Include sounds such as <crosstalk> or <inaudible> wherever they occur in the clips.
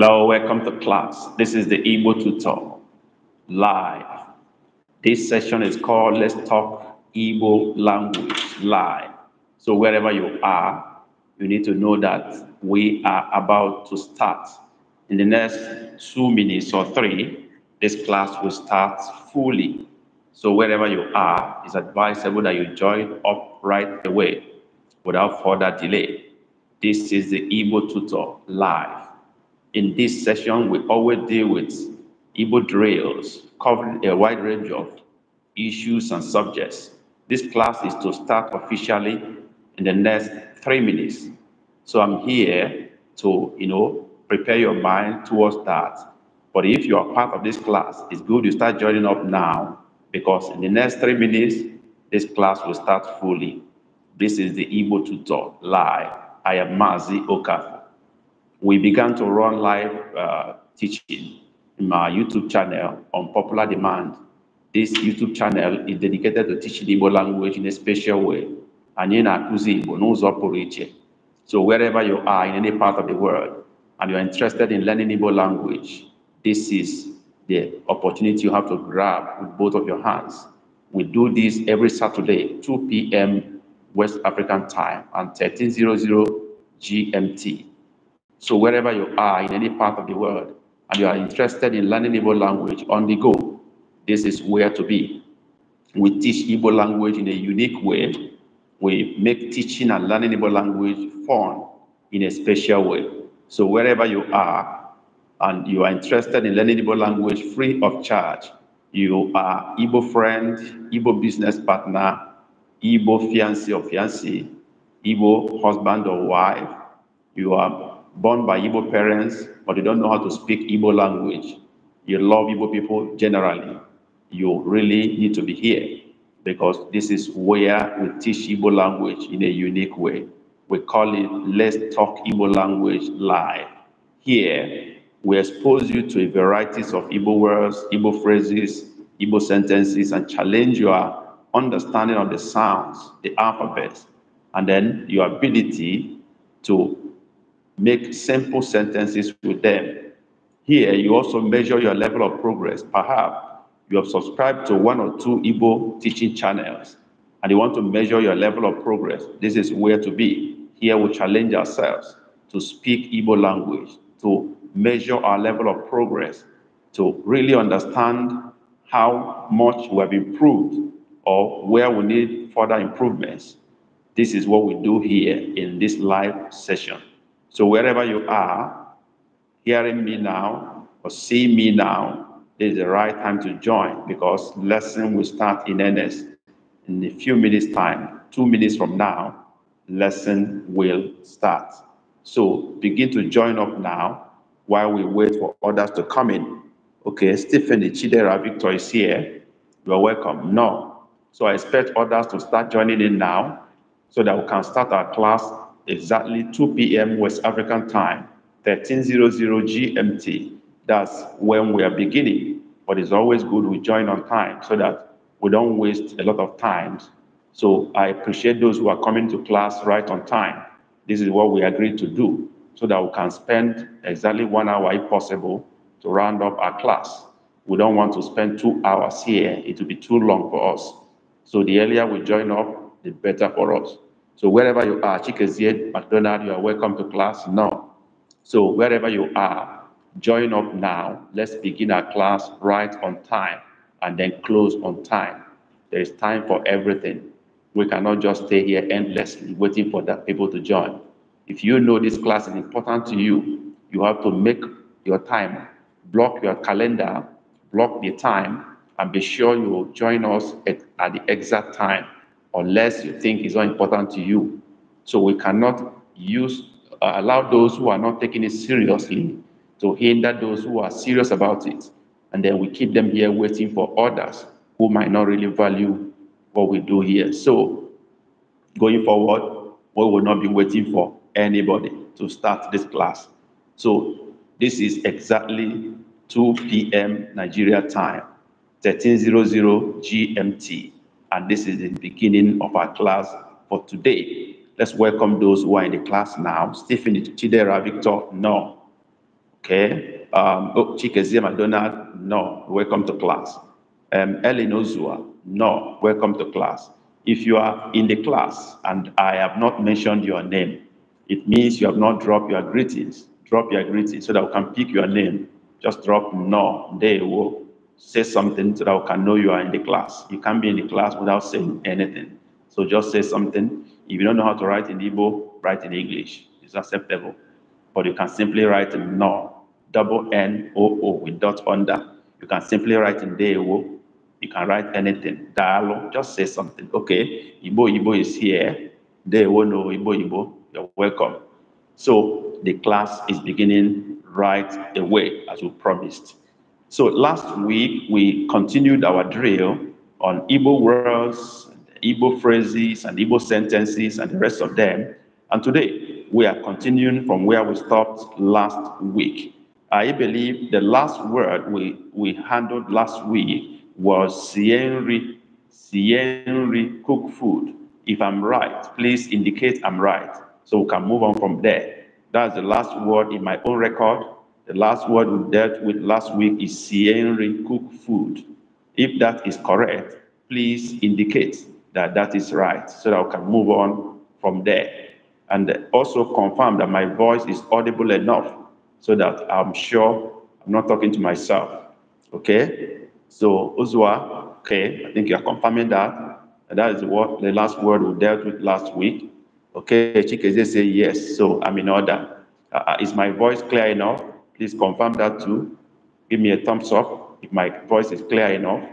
Hello, welcome to class. This is the Igbo tutor live. This session is called Let's Talk Igbo Language Live. So, wherever you are, you need to know that we are about to start. In the next two minutes or three, this class will start fully. So, wherever you are, it's advisable that you join up right away without further delay. This is the Igbo tutor live. In this session, we always deal with Igbo drills, covering a wide range of issues and subjects. This class is to start officially in the next three minutes. So I'm here to, you know, prepare your mind towards that. But if you are part of this class, it's good you start joining up now because in the next three minutes, this class will start fully. This is the Igbo Tutor Live. I am Mazi Okafu we began to run live uh, teaching in my YouTube channel on popular demand. This YouTube channel is dedicated to teaching Igbo language in a special way. And So wherever you are in any part of the world, and you're interested in learning Igbo language, this is the opportunity you have to grab with both of your hands. We do this every Saturday, 2 p.m. West African time and 1300 GMT. So wherever you are in any part of the world and you are interested in learning Igbo language on the go, this is where to be. We teach Igbo language in a unique way. We make teaching and learning Igbo language fun in a special way. So wherever you are and you are interested in learning Igbo language free of charge, you are Igbo friend, Igbo business partner, Igbo fiancé or fiancée, Igbo husband or wife, you are born by Igbo parents, but you don't know how to speak Igbo language, you love Igbo people generally, you really need to be here because this is where we teach Igbo language in a unique way. We call it Let's Talk Igbo Language Live. Here, we expose you to a variety of Igbo words, Igbo phrases, Igbo sentences, and challenge your understanding of the sounds, the alphabets, and then your ability to make simple sentences with them. Here, you also measure your level of progress. Perhaps you have subscribed to one or two Igbo teaching channels and you want to measure your level of progress. This is where to be. Here, we challenge ourselves to speak Igbo language, to measure our level of progress, to really understand how much we have improved or where we need further improvements. This is what we do here in this live session. So wherever you are, hearing me now or see me now, is the right time to join because lesson will start in earnest in a few minutes time. Two minutes from now, lesson will start. So begin to join up now while we wait for others to come in. Okay, Stephanie Chidera Victor is here. You are welcome. No. So I expect others to start joining in now so that we can start our class exactly 2 p.m. West African time, 1300 GMT. That's when we are beginning. But it's always good we join on time so that we don't waste a lot of time. So I appreciate those who are coming to class right on time. This is what we agreed to do so that we can spend exactly one hour if possible to round up our class. We don't want to spend two hours here. It will be too long for us. So the earlier we join up, the better for us. So wherever you are, Chikezie, McDonald, you are welcome to class now. So wherever you are, join up now. Let's begin our class right on time and then close on time. There is time for everything. We cannot just stay here endlessly waiting for the people to join. If you know this class is important to you, you have to make your time, block your calendar, block the time, and be sure you will join us at, at the exact time unless you think it's not important to you. So we cannot use uh, allow those who are not taking it seriously to hinder those who are serious about it. And then we keep them here waiting for others who might not really value what we do here. So going forward, we will not be waiting for anybody to start this class. So this is exactly 2 p.m. Nigeria time, 1300 GMT and this is the beginning of our class for today. Let's welcome those who are in the class now. Stephanie Chidera Victor, no. Okay. Um, oh, Chikezie McDonald, no. Welcome to class. Um, Ellen Ozua, no. Welcome to class. If you are in the class and I have not mentioned your name, it means you have not dropped your greetings. Drop your greetings so that we can pick your name. Just drop no. There you go say something so that we can know you are in the class. You can't be in the class without saying anything. So just say something. If you don't know how to write in Igbo, write in English. It's acceptable. But you can simply write in no, double N O O with dot under. You can simply write in Dewo. You can write anything. Dialogue, just say something. Okay, Igbo Igbo is here. Dewo no Igbo Igbo. You're welcome. So the class is beginning right away as we promised. So last week, we continued our drill on Igbo words, Igbo phrases, and Igbo sentences, and the rest of them. And today, we are continuing from where we stopped last week. I believe the last word we, we handled last week was Sienri, Sienri cook food. If I'm right, please indicate I'm right so we can move on from there. That's the last word in my own record. The last word we dealt with last week is Sierra cook food. If that is correct, please indicate that that is right so that I can move on from there. And also confirm that my voice is audible enough so that I'm sure I'm not talking to myself. Okay? So, Uzwa, okay, I think you are confirming that. And that is what the last word we dealt with last week. Okay, Chikeze say yes, so I'm in order. Uh, uh is my voice clear enough? Please confirm that too. Give me a thumbs up if my voice is clear enough.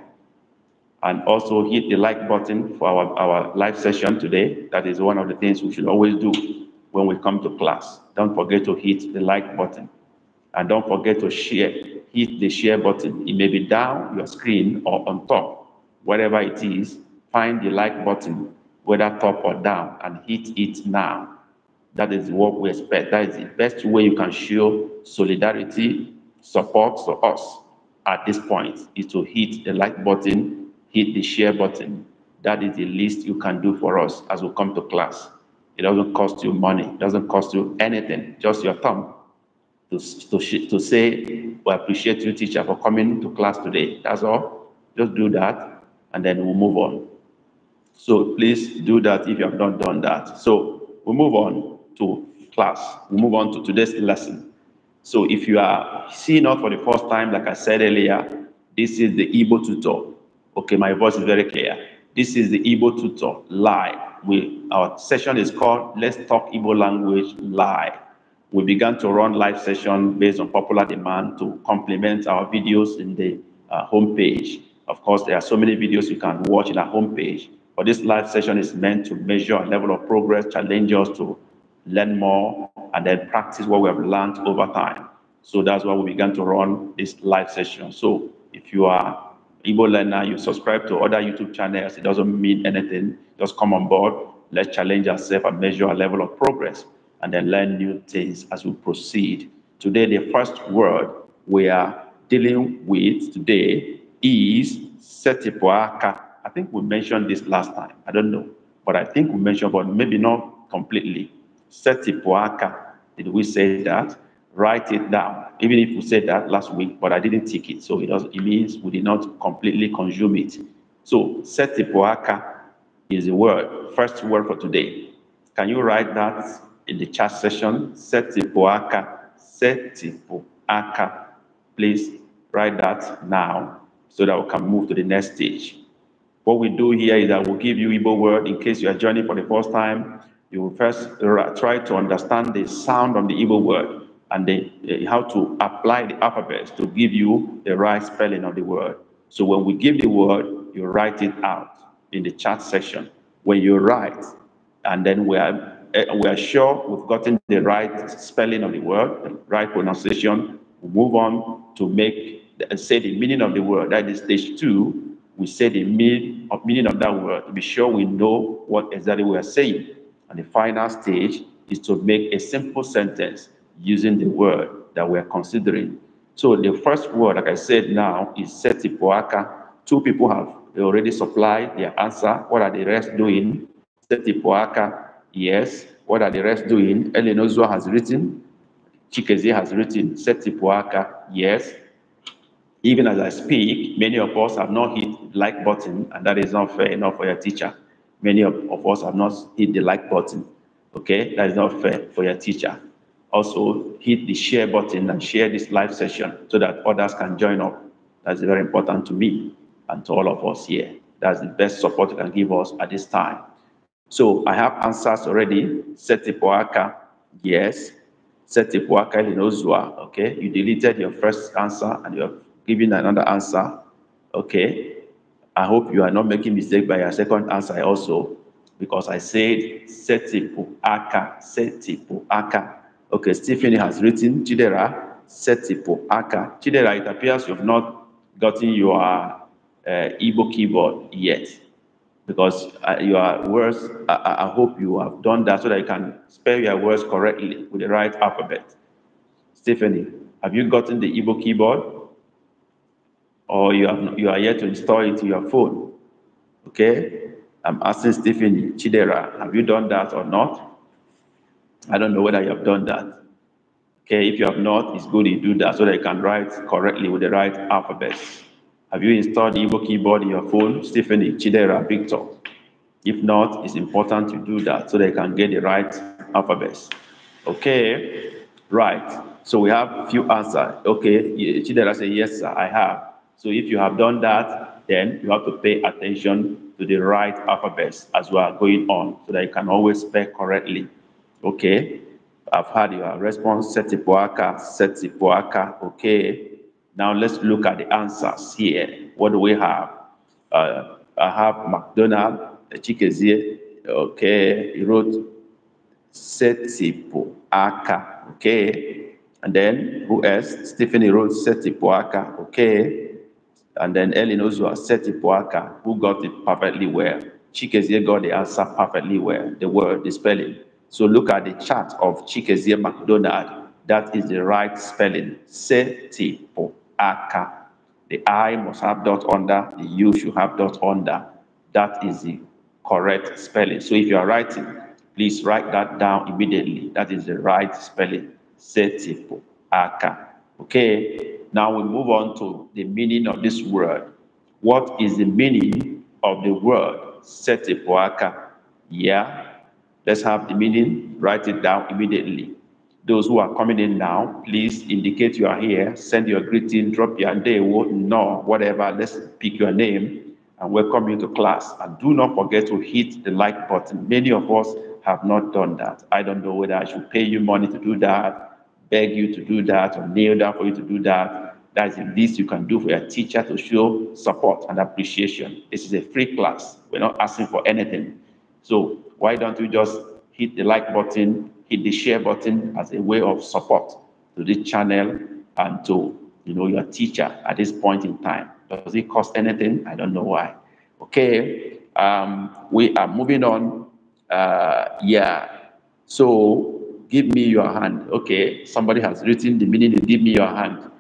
And also hit the like button for our, our live session today. That is one of the things we should always do when we come to class. Don't forget to hit the like button. And don't forget to share, hit the share button. It may be down your screen or on top, whatever it is, find the like button, whether top or down, and hit it now. That is what we expect. That is the best way you can show solidarity, support for us at this point is to hit the like button, hit the share button. That is the least you can do for us as we come to class. It doesn't cost you money, it doesn't cost you anything, just your thumb to, to, to say, we appreciate you, teacher, for coming to class today. That's all. Just do that, and then we'll move on. So please do that if you have not done that. So we we'll move on to class. We move on to today's lesson. So if you are seeing us for the first time, like I said earlier, this is the Igbo tutor. Okay, my voice is very clear. This is the Igbo tutor live. We, our session is called Let's Talk Igbo Language Live. We began to run live session based on popular demand to complement our videos in the uh, homepage. Of course, there are so many videos you can watch in our homepage, but this live session is meant to measure a level of progress, challenge us to learn more, and then practice what we have learned over time. So that's why we began to run this live session. So if you are Igbo learner, you subscribe to other YouTube channels, it doesn't mean anything. Just come on board, let's challenge ourselves and measure our level of progress, and then learn new things as we proceed. Today, the first word we are dealing with today is Setipuaka. I think we mentioned this last time. I don't know, but I think we mentioned, but maybe not completely. Setipuaka. Did we say that? Write it down. Even if we said that last week, but I didn't take it. So it, it means we did not completely consume it. So Setipuaka is the word, first word for today. Can you write that in the chat session? seti Setipuaka. Please write that now so that we can move to the next stage. What we do here is that we'll give you Igbo word in case you are joining for the first time you will first try to understand the sound of the evil word and the, uh, how to apply the alphabets to give you the right spelling of the word. So when we give the word, you write it out in the chat section. When you write, and then we are, uh, we are sure we've gotten the right spelling of the word, the right pronunciation, we move on to make the, eh, say the meaning of the word. That is stage two. We say the mean, meaning of that word to be sure we know what exactly we are saying. And the final stage is to make a simple sentence using the word that we're considering. So the first word, like I said now, is setipoaka. Two people have already supplied their answer. What are the rest doing? Setipoaka, yes. What are the rest doing? Elenozua has written. Chikeze has written. Setipoaka, yes. Even as I speak, many of us have not hit like button, and that is not fair enough for your teacher many of, of us have not hit the like button. Okay, that is not fair for your teacher. Also, hit the share button and share this live session so that others can join up. That's very important to me and to all of us here. That's the best support you can give us at this time. So I have answers already. Setipoaka, yes. Setipoaka Linozua, okay. You deleted your first answer and you're giving another answer, okay. I hope you are not making mistake by your second answer also, because I said seti Setipuaka, aka. Okay, Stephanie has written Chidera, seti aka Chidera, it appears you've not gotten your uh, Igbo keyboard yet, because uh, your words, I, I hope you have done that so that you can spell your words correctly with the right alphabet. Stephanie, have you gotten the Igbo keyboard? or you, have, you are yet to install it to your phone. Okay? I'm asking Stephen Chidera, have you done that or not? I don't know whether you have done that. Okay, if you have not, it's good you do that so that you can write correctly with the right alphabet. Have you installed Evo keyboard in your phone? Stephen Chidera, Victor. If not, it's important to do that so they can get the right alphabets. Okay, right. So we have a few answers. Okay, Chidera said, yes, sir, I have. So if you have done that, then you have to pay attention to the right alphabets as we are going on so that you can always spell correctly. Okay. I've had your response, Setipuaka, Setipuaka. Okay. Now let's look at the answers here. What do we have? Uh, I have McDonald, Chikezie. Okay. He wrote Setipuaka. Okay. And then who else? Stephanie wrote Setipuaka. Okay. And then Ellen Ozua set Ipuaka, who got it perfectly well. Chikezie got the answer perfectly well, the word, the spelling. So look at the chart of Chikezie McDonald. That is the right spelling. Setipoaka. The I must have dot under, the U should have dot under. That is the correct spelling. So if you are writing, please write that down immediately. That is the right spelling. Setipoaka. Okay. Now we move on to the meaning of this word. What is the meaning of the word setipoaka? Yeah, let's have the meaning. Write it down immediately. Those who are coming in now, please indicate you are here. Send your greeting, drop your name. no, whatever. Let's pick your name and welcome you to class. And do not forget to hit the like button. Many of us have not done that. I don't know whether I should pay you money to do that beg you to do that or kneel down for you to do that. That is the least you can do for your teacher to show support and appreciation. This is a free class. We're not asking for anything. So why don't you just hit the like button, hit the share button as a way of support to this channel and to you know your teacher at this point in time. Does it cost anything? I don't know why. Okay, um, we are moving on. Uh, yeah, so give me your hand. Okay, somebody has written the meaning give me your hand.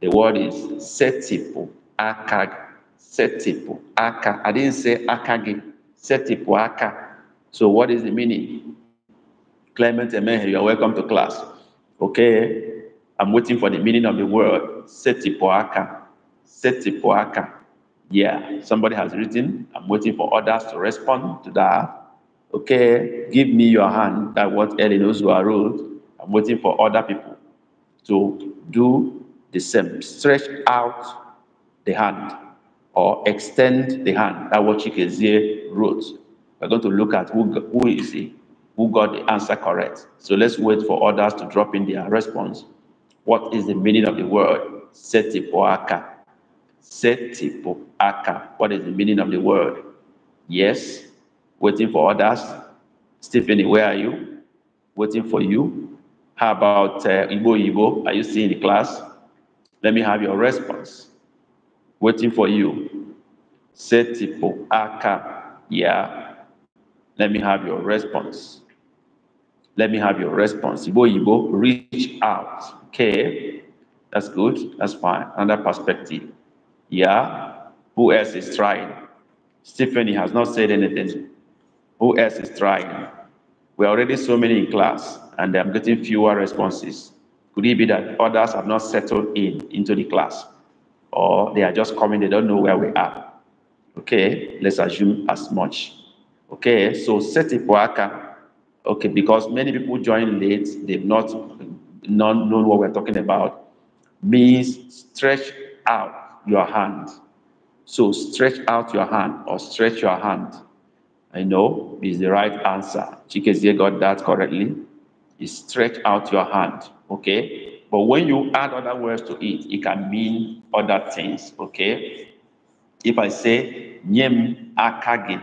The word is setipo akag. Setipo aka. I didn't say akagi. Setipo aka. So what is the meaning? Clement Emehe, you are welcome to class. Okay, I'm waiting for the meaning of the word setipo aka. Setipo aka. Yeah, somebody has written. I'm waiting for others to respond to that okay, give me your hand, that what Ellen are wrote. I'm waiting for other people to do the same. Stretch out the hand or extend the hand. That what Chikezie wrote. We're going to look at who, who is he, who got the answer correct. So let's wait for others to drop in their response. What is the meaning of the word setipoaka? Setipoaka. What is the meaning of the word? Yes, waiting for others. Stephanie, where are you? Waiting for you. How about uh, Igbo Igbo? Are you still in the class? Let me have your response. Waiting for you. Setipo Aka. Yeah. Let me have your response. Let me have your response. Igbo Igbo, reach out. Okay. That's good. That's fine. Another perspective. Yeah. Who else is trying? Stephanie has not said anything. Who else is trying? We are already so many in class, and I'm getting fewer responses. Could it be that others have not settled in into the class? Or they are just coming, they don't know where we are. Okay, let's assume as much. Okay, so set it worker. Okay, because many people join late, they've not, not known what we're talking about. Means stretch out your hand. So stretch out your hand or stretch your hand. I know is the right answer. Chikezie got that correctly. Is stretch out your hand, okay? But when you add other words to it, it can mean other things, okay? If I say, Nyem akage,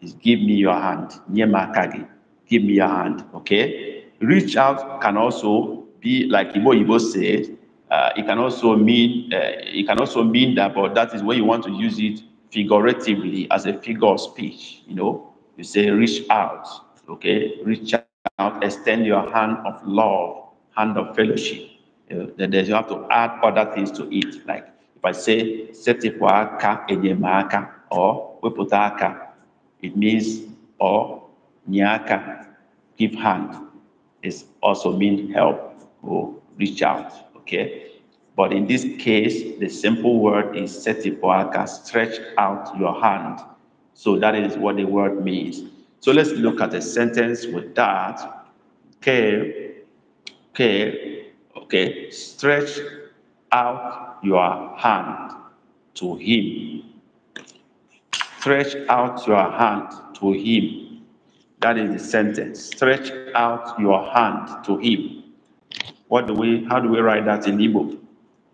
is give me your hand. Nyem akage, give me your hand, okay? Reach out can also be, like Ibo Ibo said, uh, it can also mean uh, it can also mean that, but that is where you want to use it figuratively as a figure of speech. You know, you say reach out, okay, reach out, extend your hand of love, hand of fellowship. You then you have to add other things to it. Like if I say setifuaka enyemaka or weputaka, it means or nyaka, give hand. It also means help or reach out. Okay. But in this case, the simple word is setipoaka, stretch out your hand. So that is what the word means. So let's look at a sentence with that. Okay, okay, okay. Stretch out your hand to him. Stretch out your hand to him. That is the sentence. Stretch out your hand to him. What do we? How do we write that in Igbo?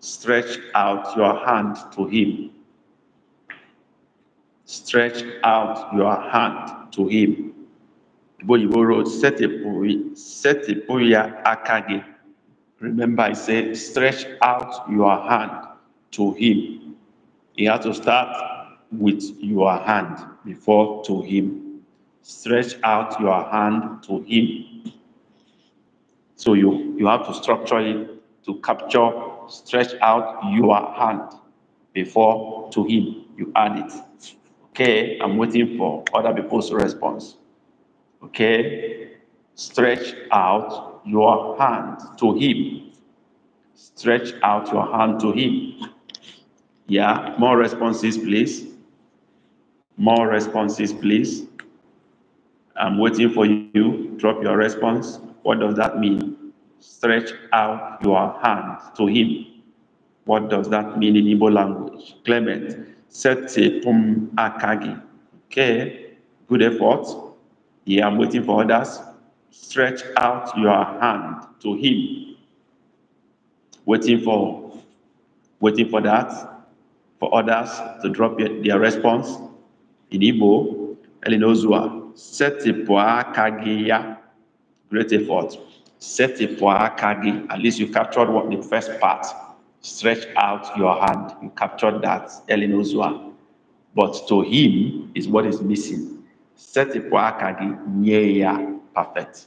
Stretch out your hand to him. Stretch out your hand to him. Remember, I said, stretch out your hand to him. You have to start with your hand before to him. Stretch out your hand to him. So you, you have to structure it to capture, stretch out your hand before to him you add it. Okay, I'm waiting for other people's response. Okay, stretch out your hand to him. Stretch out your hand to him. Yeah, more responses, please. More responses, please. I'm waiting for you. Drop your response. What does that mean? stretch out your hand to him. What does that mean in Igbo language? Clement, sete pum akagi. Okay, good effort. Yeah, I'm waiting for others. Stretch out your hand to him. Waiting for, waiting for that, for others to drop their response. In Igbo, Elinozua, sete pum kagiya. Great effort set kagi. At least you captured what the first part. Stretch out your hand. You captured that elinozua. But to him is what is missing. Set akagi nyeya perfect.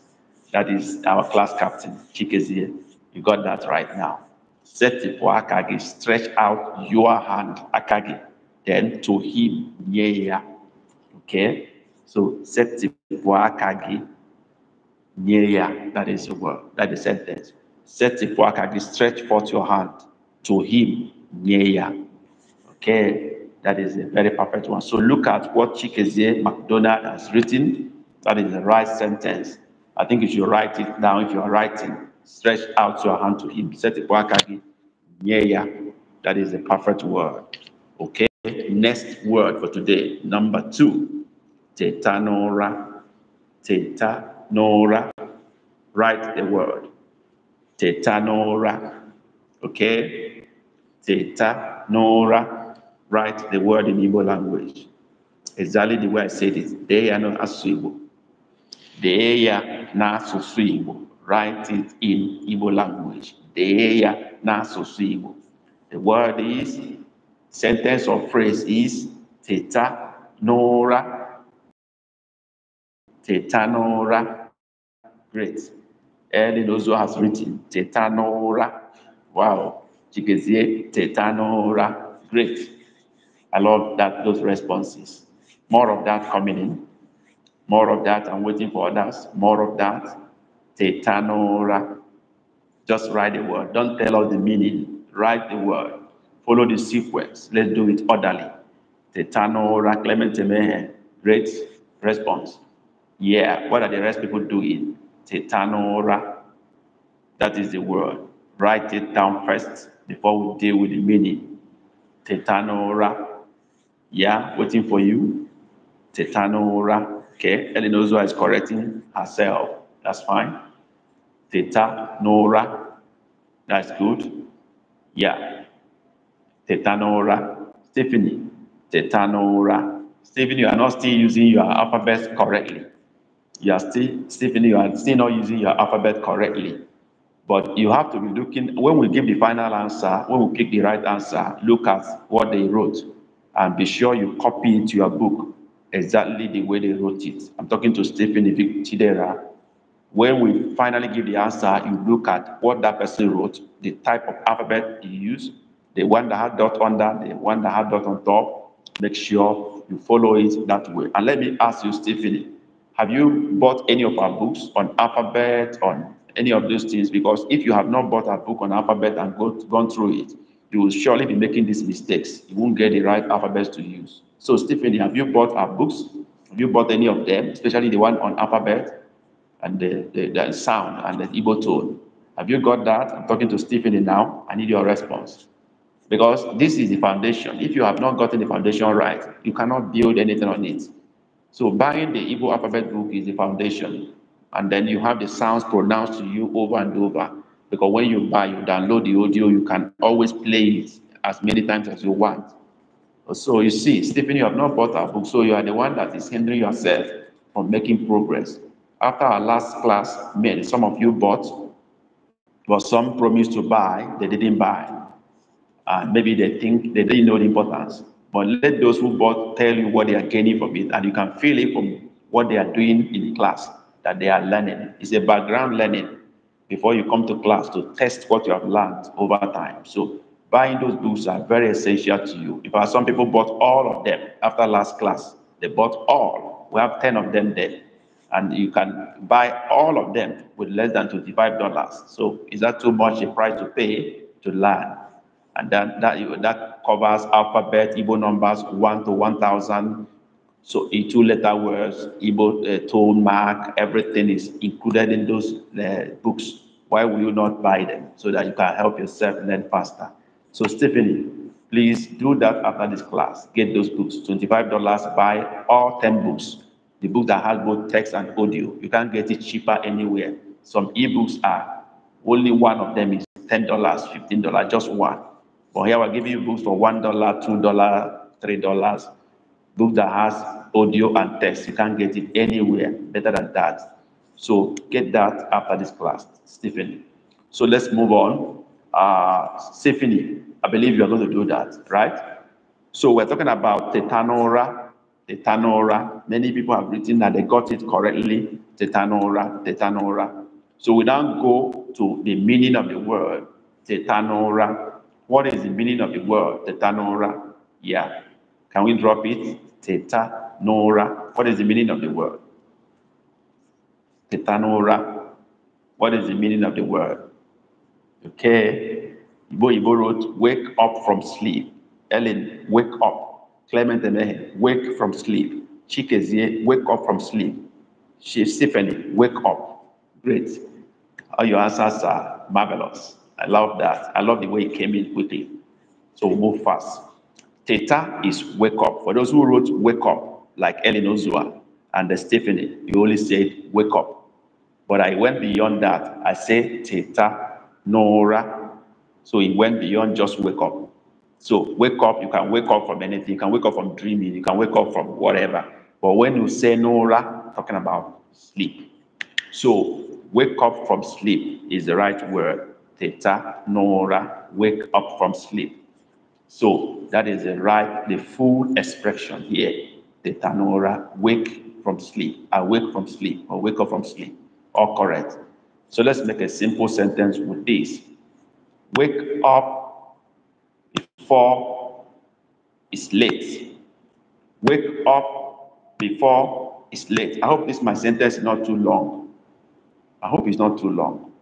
That is our class captain, Chikezie. You got that right now. Set kagi. Stretch out your hand, akagi. Then to him nyeya. Okay. So set kagi. Nearer, that is the word, that is the sentence. Set the poakagi, stretch forth your hand to him, nearer. Okay, that is a very perfect one. So look at what Chikezie McDonald has written. That is the right sentence. I think you should write it now if you are writing. Stretch out your hand to him. Set the poakagi, nearer. That is the perfect word. Okay, next word for today, number two. Tetanora. Tetanora. Nora. Write the word. Theta Nora. Okay? Theta Nora. Write the word in Igbo language. Exactly the way I said it. They are not Asuibo. They are not Asuibo. Write it in Igbo language. They are not Asuibo. The word is, sentence or phrase is Theta Nora Tetanora. Great. Ellen also has written Tetanora. Wow. Chigezie Tetanora. Great. I love that those responses. More of that coming in. More of that. I'm waiting for others. More of that. Tetanora. Just write the word. Don't tell us the meaning. Write the word. Follow the sequence. Let's do it orderly. Tetanora Clemente Mehe. Great response. Yeah, what are the rest people doing? Tetanora. That is the word. Write it down first before we deal with the meaning. Tetanora. Yeah, waiting for you. Tetanora. Okay, Elinozwa is correcting herself. That's fine. Tetanora. That's good. Yeah. Tetanora. Stephanie. Tetanora. Stephanie, you are not still using your alphabet correctly you are still, Stephen, you are still not using your alphabet correctly. But you have to be looking, when we give the final answer, when we pick the right answer, look at what they wrote and be sure you copy it to your book exactly the way they wrote it. I'm talking to Stephen Tidera. When we finally give the answer, you look at what that person wrote, the type of alphabet you use, the one that had dot under, the one that had dot on top. Make sure you follow it that way. And let me ask you, Stephanie, have you bought any of our books on alphabet, on any of those things? Because if you have not bought a book on alphabet and go, gone through it, you will surely be making these mistakes. You won't get the right alphabets to use. So, Stephen, have you bought our books? Have you bought any of them, especially the one on alphabet and the, the, the sound and the ebo tone? Have you got that? I'm talking to Stephen now. I need your response. Because this is the foundation. If you have not gotten the foundation right, you cannot build anything on it. So buying the Igbo alphabet book is the foundation. And then you have the sounds pronounced to you over and over. Because when you buy, you download the audio, you can always play it as many times as you want. So you see, Stephen, you have not bought a book, so you are the one that is hindering yourself from making progress. After our last class, many some of you bought, but some promised to buy, they didn't buy. And maybe they think they didn't know the importance. But let those who bought tell you what they are gaining from it, and you can feel it from what they are doing in class that they are learning. It's a background learning before you come to class to test what you have learned over time. So buying those books are very essential to you. In fact, some people bought all of them after last class. They bought all. We have 10 of them there. And you can buy all of them with less than $25. So is that too much a price to pay to learn? and that that that covers alphabet Igbo numbers one to one thousand. So in two-letter words, Igbo uh, tone mark, everything is included in those uh, books. Why will you not buy them so that you can help yourself learn faster? So Stephanie, please do that after this class. Get those books, twenty-five dollars. Buy all ten books. The book that has both text and audio. You can't get it cheaper anywhere. Some ebooks are only one of them is ten dollars, fifteen dollars, just one. But here we're giving you books for one dollar, two dollar, three dollars. Book that has audio and text. You can't get it anywhere better than that. So get that after this class, Stephanie. So let's move on. Uh, Stephanie, I believe you are going to do that, right? So we're talking about tetanora, tetanora. Many people have written that they got it correctly, tetanora, tetanora. So we now go to the meaning of the word tetanora. What is the meaning of the word tetanora? Yeah. Can we drop it? Tetanora. What is the meaning of the word? Tetanora. What is the meaning of the word? Okay. Ibo Ibo wrote, wake up from sleep. Ellen, wake up. Clement Emehe, wake from sleep. Chikezie, wake up from sleep. Stephanie, wake up. Great. All your answers are marvelous. I love that. I love the way it came in quickly. So move fast. Theta is wake up. For those who wrote wake up, like Ellen Ozua and Stephanie, you only said wake up. But I went beyond that. I said theta, nora. So it went beyond just wake up. So wake up, you can wake up from anything. You can wake up from dreaming. You can wake up from whatever. But when you say nora, talking about sleep. So wake up from sleep is the right word theta, nora, wake up from sleep. So that is the right, the full expression here. Theta, nora, wake from sleep, awake from sleep, or wake up from sleep, all correct. So let's make a simple sentence with this. Wake up before it's late. Wake up before it's late. I hope this my sentence is not too long. I hope it's not too long.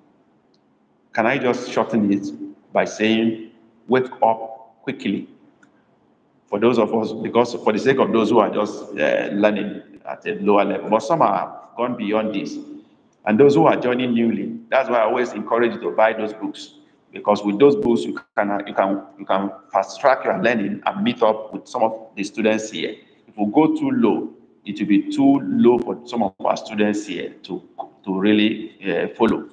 Can I just shorten it by saying, wake up quickly? For those of us, because for the sake of those who are just uh, learning at a lower level, but some have gone beyond this. And those who are joining newly, that's why I always encourage you to buy those books because with those books you can you can you can fast track your learning and meet up with some of the students here. If we go too low, it will be too low for some of our students here to to really uh, follow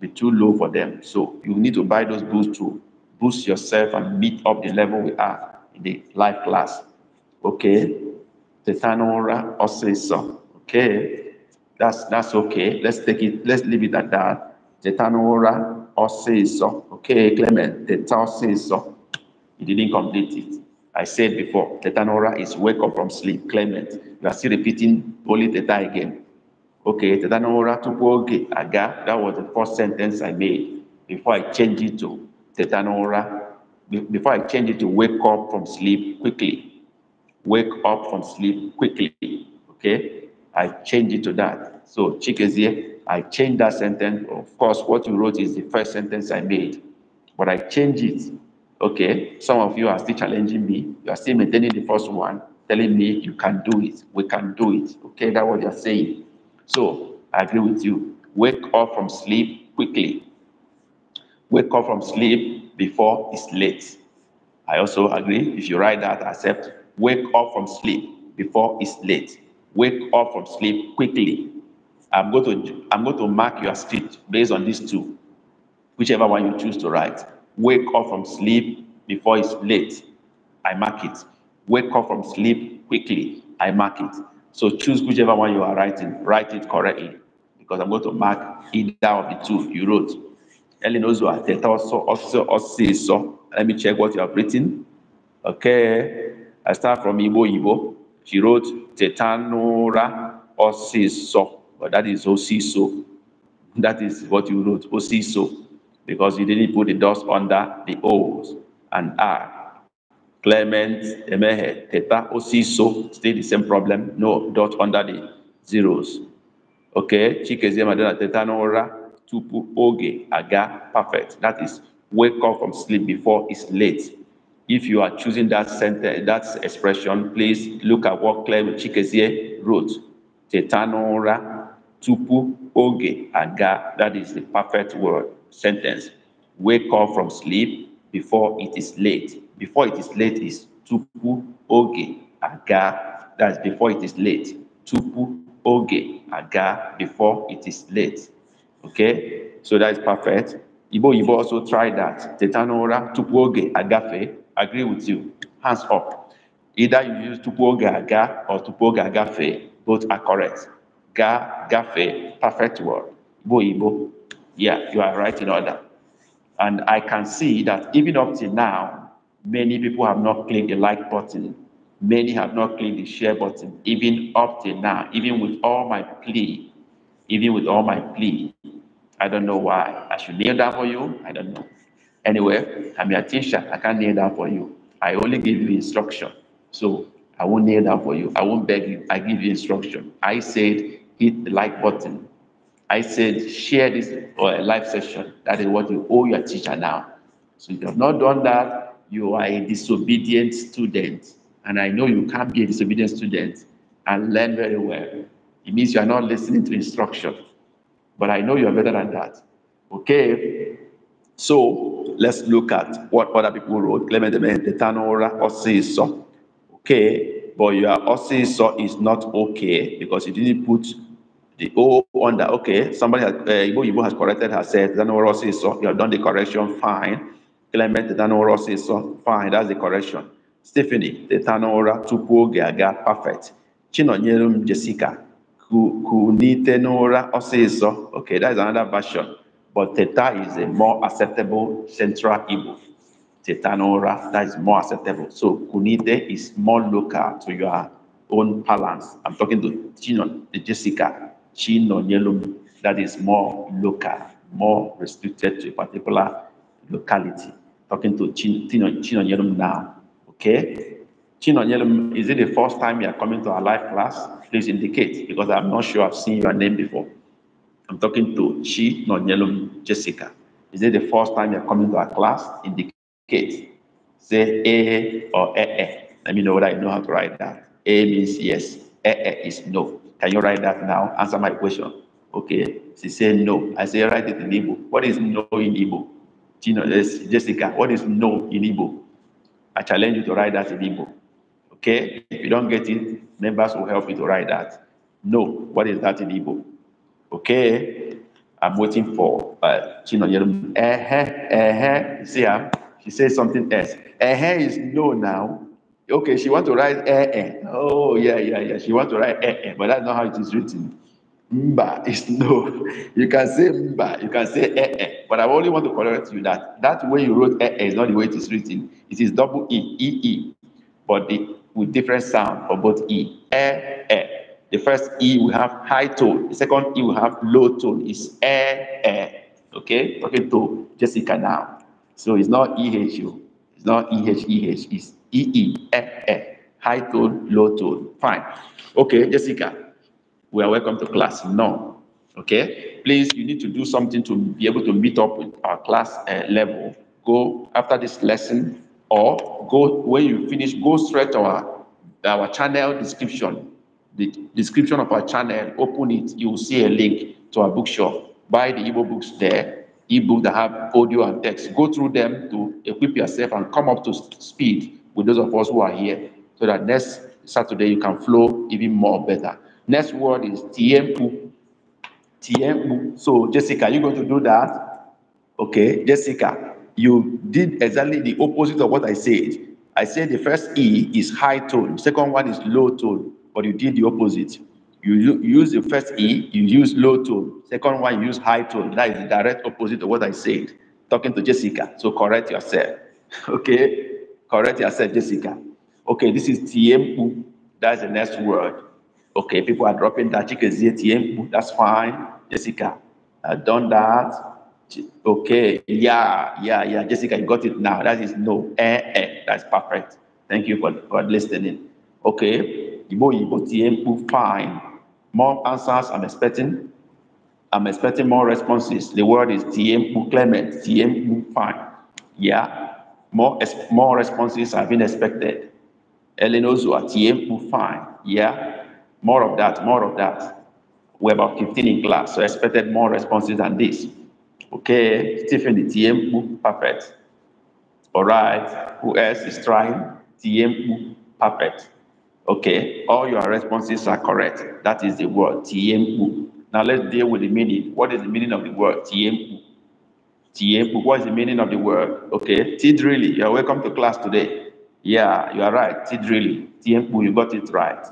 be too low for them. So you need to buy those books to boost yourself and meet up the level we are in the life class. Okay? Tetanora osisa. Okay? That's that's okay. Let's take it, let's leave it at that. Tetanora osisa. Okay, Clement, tetanora You didn't complete it. I said before, tetanora is wake up from sleep. Clement, you are still repeating poly theta again. Okay, Tetanora Tupuoge Aga, that was the first sentence I made before I changed it to Tetanora, before I changed it to wake up from sleep quickly. Wake up from sleep quickly. Okay, I changed it to that. So, here. I changed that sentence. Of course, what you wrote is the first sentence I made, but I changed it. Okay, some of you are still challenging me. You are still maintaining the first one, telling me you can do it. We can do it. Okay, that's what you're saying. So I agree with you. Wake up from sleep quickly. Wake up from sleep before it's late. I also agree. If you write that, accept. Wake up from sleep before it's late. Wake up from sleep quickly. I'm going to I'm going to mark your script based on these two, whichever one you choose to write. Wake up from sleep before it's late. I mark it. Wake up from sleep quickly. I mark it. So choose whichever one you are writing. Write it correctly because I'm going to mark either of the two you wrote. Ellen Ozua, Teta also, also, also, so. Let me check what you have written. Okay. I start from Ibo Ibo. She wrote Tetanora Osiso, but that is Osiso. That is what you wrote, Osiso, because you didn't put the dust under the O's and R. Clement Emehe Teta Osiso, still the same problem, no dot under the zeros. Okay, Chikezie Madonna Teta Nora Tupu Oge Aga, perfect. That is wake up from sleep before it's late. If you are choosing that sentence, that expression, please look at what Clement Chikezie wrote. Teta Nora Tupu Oge Aga, that is the perfect word, sentence. Wake up from sleep before it is late. Before it is late is tupu oge aga. That's before it is late. Tupu oge aga. Before it is late. Okay, so that is perfect. Ibo Ibo also try that. Tetanora tupu oge agafe. Agree with you. Hands up. Either you use tupu oge aga or tupu oge agafe. Both are correct. Ga gafe. Perfect word. Ibo Ibo. Yeah, you are right in order. And I can see that even up till now, Many people have not clicked the like button. Many have not clicked the share button, even up till now, even with all my plea, even with all my plea. I don't know why. I should kneel down for you. I don't know. Anyway, I'm your teacher. I can't kneel down for you. I only give you instruction. So I won't kneel down for you. I won't beg you. I give you instruction. I said, hit the like button. I said, share this uh, live session. That is what you owe your teacher now. So if you have not done that, you are a disobedient student, and I know you can't be a disobedient student and learn very well, it means you are not listening to instruction. But I know you are better than that. Okay? So let's look at what other people wrote. Clement Tanora Osiso. Okay, but your Osiso is not okay because you didn't put the O on that. Okay, somebody has, uh, Ibo Ibo has corrected herself. Tanora Osiso, you have done the correction, fine. Clement Ethanora says, so fine, that's the correction. Stephanie Ethanora tupu oge aga, perfect. Chinonyerum Jessica kunite n'ụra ọsịsọ. Okay, that's another version. But Teta is a more acceptable central Igbo. Teta that is more acceptable. So kunite is more local to your own balance. I'm talking to Chinon, Jessica, Chinonyelum, that is more local, more restricted to a particular locality talking to Chino, Chino Yelum now. Okay? Chino Yelum, is it the first time you are coming to our live class? Please indicate because I'm not sure I've seen your name before. I'm talking to Chino Yelum Jessica. Is it the first time you're coming to our class? Indicate. Say A or E. Let me know whether I know how to write that. A means yes. E, is no. Can you write that now? Answer my question. Okay. She said no. I say write it in Igbo. What is no in Igbo? you know, Jessica, what is no in Igbo? I challenge you to write that in Igbo. Okay? If you don't get it, members will help you to write that. No, what is that in Igbo? Okay? I'm waiting for uh, Yerum. Eh, eh, see her? Ah, she says something else. Eh, is no now. Okay, she want to write eh, eh. Oh, yeah, yeah, yeah. She want to write eh, eh, but that's not how it is written. Mba is no. You can say mba, you can say eh eh. But I only want to correct you that that way you wrote eh eh is not the way it is written. It is double e e e, but the, with different sound for both e eh eh. The first e will have high tone. The second e will have low tone. It's eh eh. Okay, talking okay, to Jessica now. So it's not e h u. It's not e h e h. It's e e eh eh. High tone, low tone. Fine. Okay, Jessica we are welcome to class. No. Okay? Please, you need to do something to be able to meet up with our class uh, level. Go after this lesson or go when you finish, go straight to our, our channel description. The description of our channel, open it, you will see a link to our bookshop. Buy the Igbo books there, ebook that have audio and text. Go through them to equip yourself and come up to speed with those of us who are here so that next Saturday you can flow even more better. Next word is tiempo. Tiempo. So, Jessica, you're going to do that? Okay, Jessica, you did exactly the opposite of what I said. I said the first E is high tone, second one is low tone, but you did the opposite. You use the first E, you use low tone. Second one, you use high tone. That is the direct opposite of what I said. Talking to Jessica, so correct yourself. <laughs> Okay, correct yourself, Jessica. Okay, this is tiempo. That's the next word. Okay, people are dropping that. Chike ZTM, that's fine. Jessica, I've done that. Okay, yeah, yeah, yeah. Jessica, you got it now. That is no. Eh, eh. That's perfect. Thank you for, for listening. Okay, Ibo Ibo TM, fine. More answers I'm expecting. I'm expecting more responses. The word is TM Clement, TM fine. Yeah, more, more responses have been expected. Elenozua, TM fine. Yeah. More of that, more of that. We're about 15 in class, so I expected more responses than this. Okay, Stephen Tiempu, perfect. All right, who else is trying? Tiempu, perfect. Okay, all your responses are correct. That is the word, Tiempu. Now let's deal with the meaning. What is the meaning of the word, Tiempu? what is the meaning of the word? Okay, really, you are welcome to class today. Yeah, you are right, Really, Tiempu, you got it right.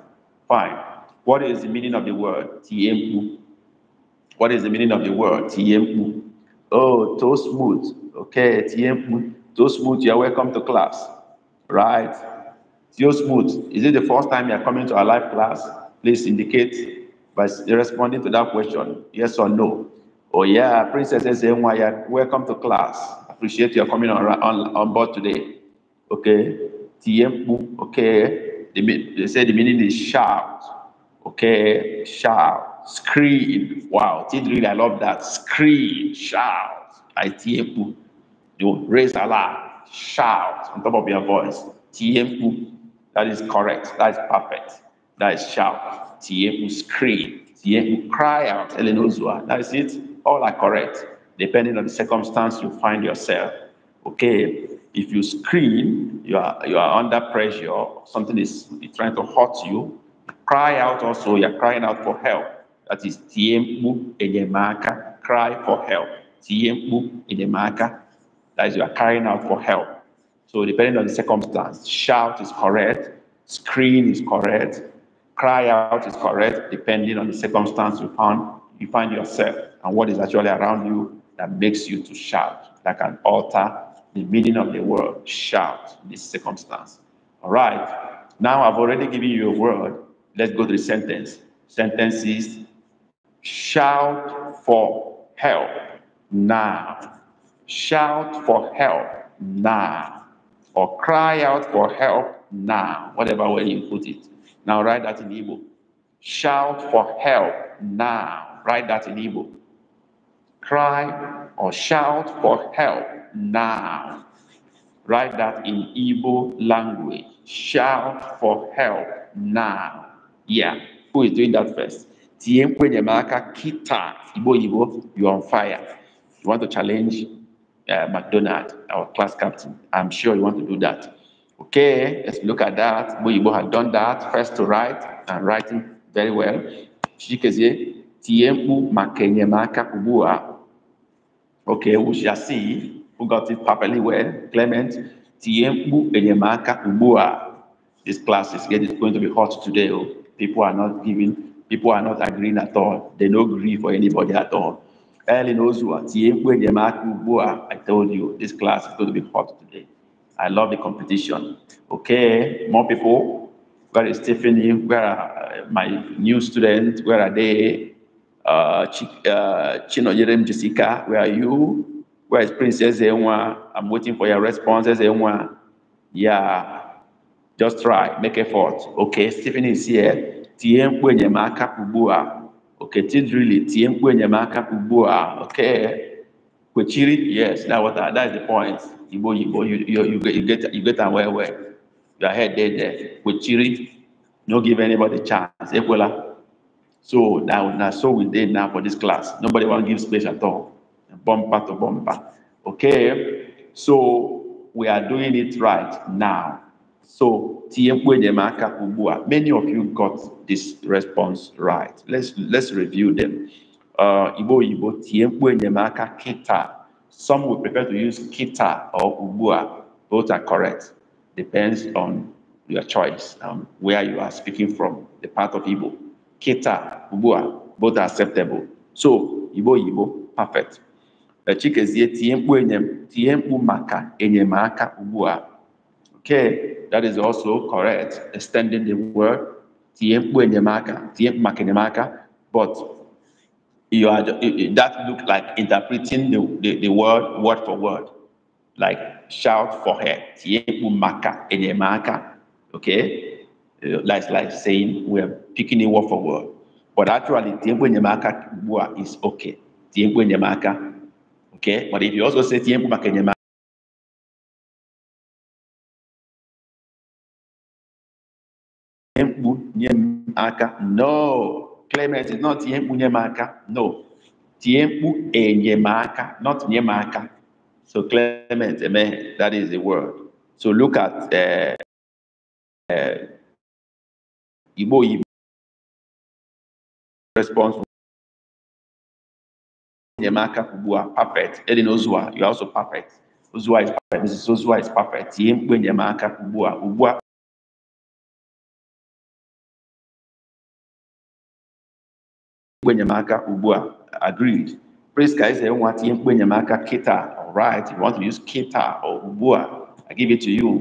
Fine. What is the meaning of the word? T M What is the meaning of the word? T M U? Oh, toast mood, Okay, T M U, toast mood. You are welcome to class. Right. Toast mood. Is it the first time you are coming to our live class? Please indicate by responding to that question. Yes or no. Oh yeah, Princess SMY, welcome to class. Appreciate are coming on, on, on board today. Okay. T M U, Okay. They, they say the meaning is shout. Okay, shout, scream. Wow, really, I love that. Scream, shout. Itiepu. You raise Allah, shout on top of your voice. Tiepu. That is correct. That is perfect. That is shout. Tiepu, scream. Tiepu, cry out. Elenozua. That is it. All are correct, depending on the circumstance you find yourself. Okay, if you scream, you are you are under pressure. Something is trying to hurt you Cry out also, you're crying out for help. That is tiempo enyemaka, cry for help. Tiempo enyemaka, that is you are crying out for help. So depending on the circumstance, shout is correct, scream is correct, cry out is correct, depending on the circumstance you find, you find yourself and what is actually around you that makes you to shout, that can alter the meaning of the word shout in this circumstance. All right. Now I've already given you a word Let's go to the sentence. Sentences shout for help now. Shout for help now. Or cry out for help now. Whatever way you put it. Now write that in Igbo. Shout for help now. Write that in Igbo. Cry or shout for help now. Write that in Igbo language. Shout for help now. Yeah, who is doing that first? Tiempo Nyamaka Kita, Ibo Ibo, you're on fire. You want to challenge uh, McDonald, our class captain. I'm sure you want to do that. Okay, let's look at that. Ibo ibo had done that, first to write, and writing very well. Shikezie, Tiempo Makenyamaka Kubua. Okay, we shall see who got it properly well. Clement, Tiempo Enyamaka Kubua. This class is going to be hot today. Oh. People are not giving, people are not agreeing at all. They don't agree for anybody at all. Early Ellen Ozua, I told you this class is going to be hot today. I love the competition. Okay, more people. Where is Stephanie? Where are uh, my new students? Where are they? Uh, uh, Chino Jerem Jessica, where are you? Where is Princess Ewa? I'm waiting for your responses, Ewa. Yeah, just try make effort okay Stephen is here tie mkpu enyemaka ugbu a okay tidrili tie mkpu enyemaka ugbu a okay kwechiri yes that what that is the point You go, you, you, you, you get you get aware where your head there there kwechiri no give anybody chance ekwela so now, now, so we did now for this class nobody want to give space at all bumper to bumper okay so we are doing it right now so many of you got this response right. Let's let's review them. Uh, Ibo Ibo Some would prefer to use kita or ubua. Both are correct. Depends on your choice, um, where you are speaking from, the part of Ibo. Kita, ubua, both are acceptable. So Ibo Ibo, perfect. Chikezie tiempu maka enyemaka ubua. Okay that is also correct, extending the word, but you are that look like interpreting the, the, the word word for word, like shout for her, okay? Uh, like, like saying we are picking it word for word. But actually, is okay. Okay, but if you also say aka no clement is not ihe mkpu no tie mkpu enyemaka not nye so clement amen that is the word so look at Ibo uh, eh, eh, igbo igbo response enyemaka ugbu perfect edi ozua you are also perfect ozua is perfect mrs ozua is perfect tie mkpu enyemaka ugbu a ugbu a mkpu enyemaka ugbu a agreed praise ka eze nwa tinye mkpu enyemaka kita alright you want to use kita or ugbu a i give it to you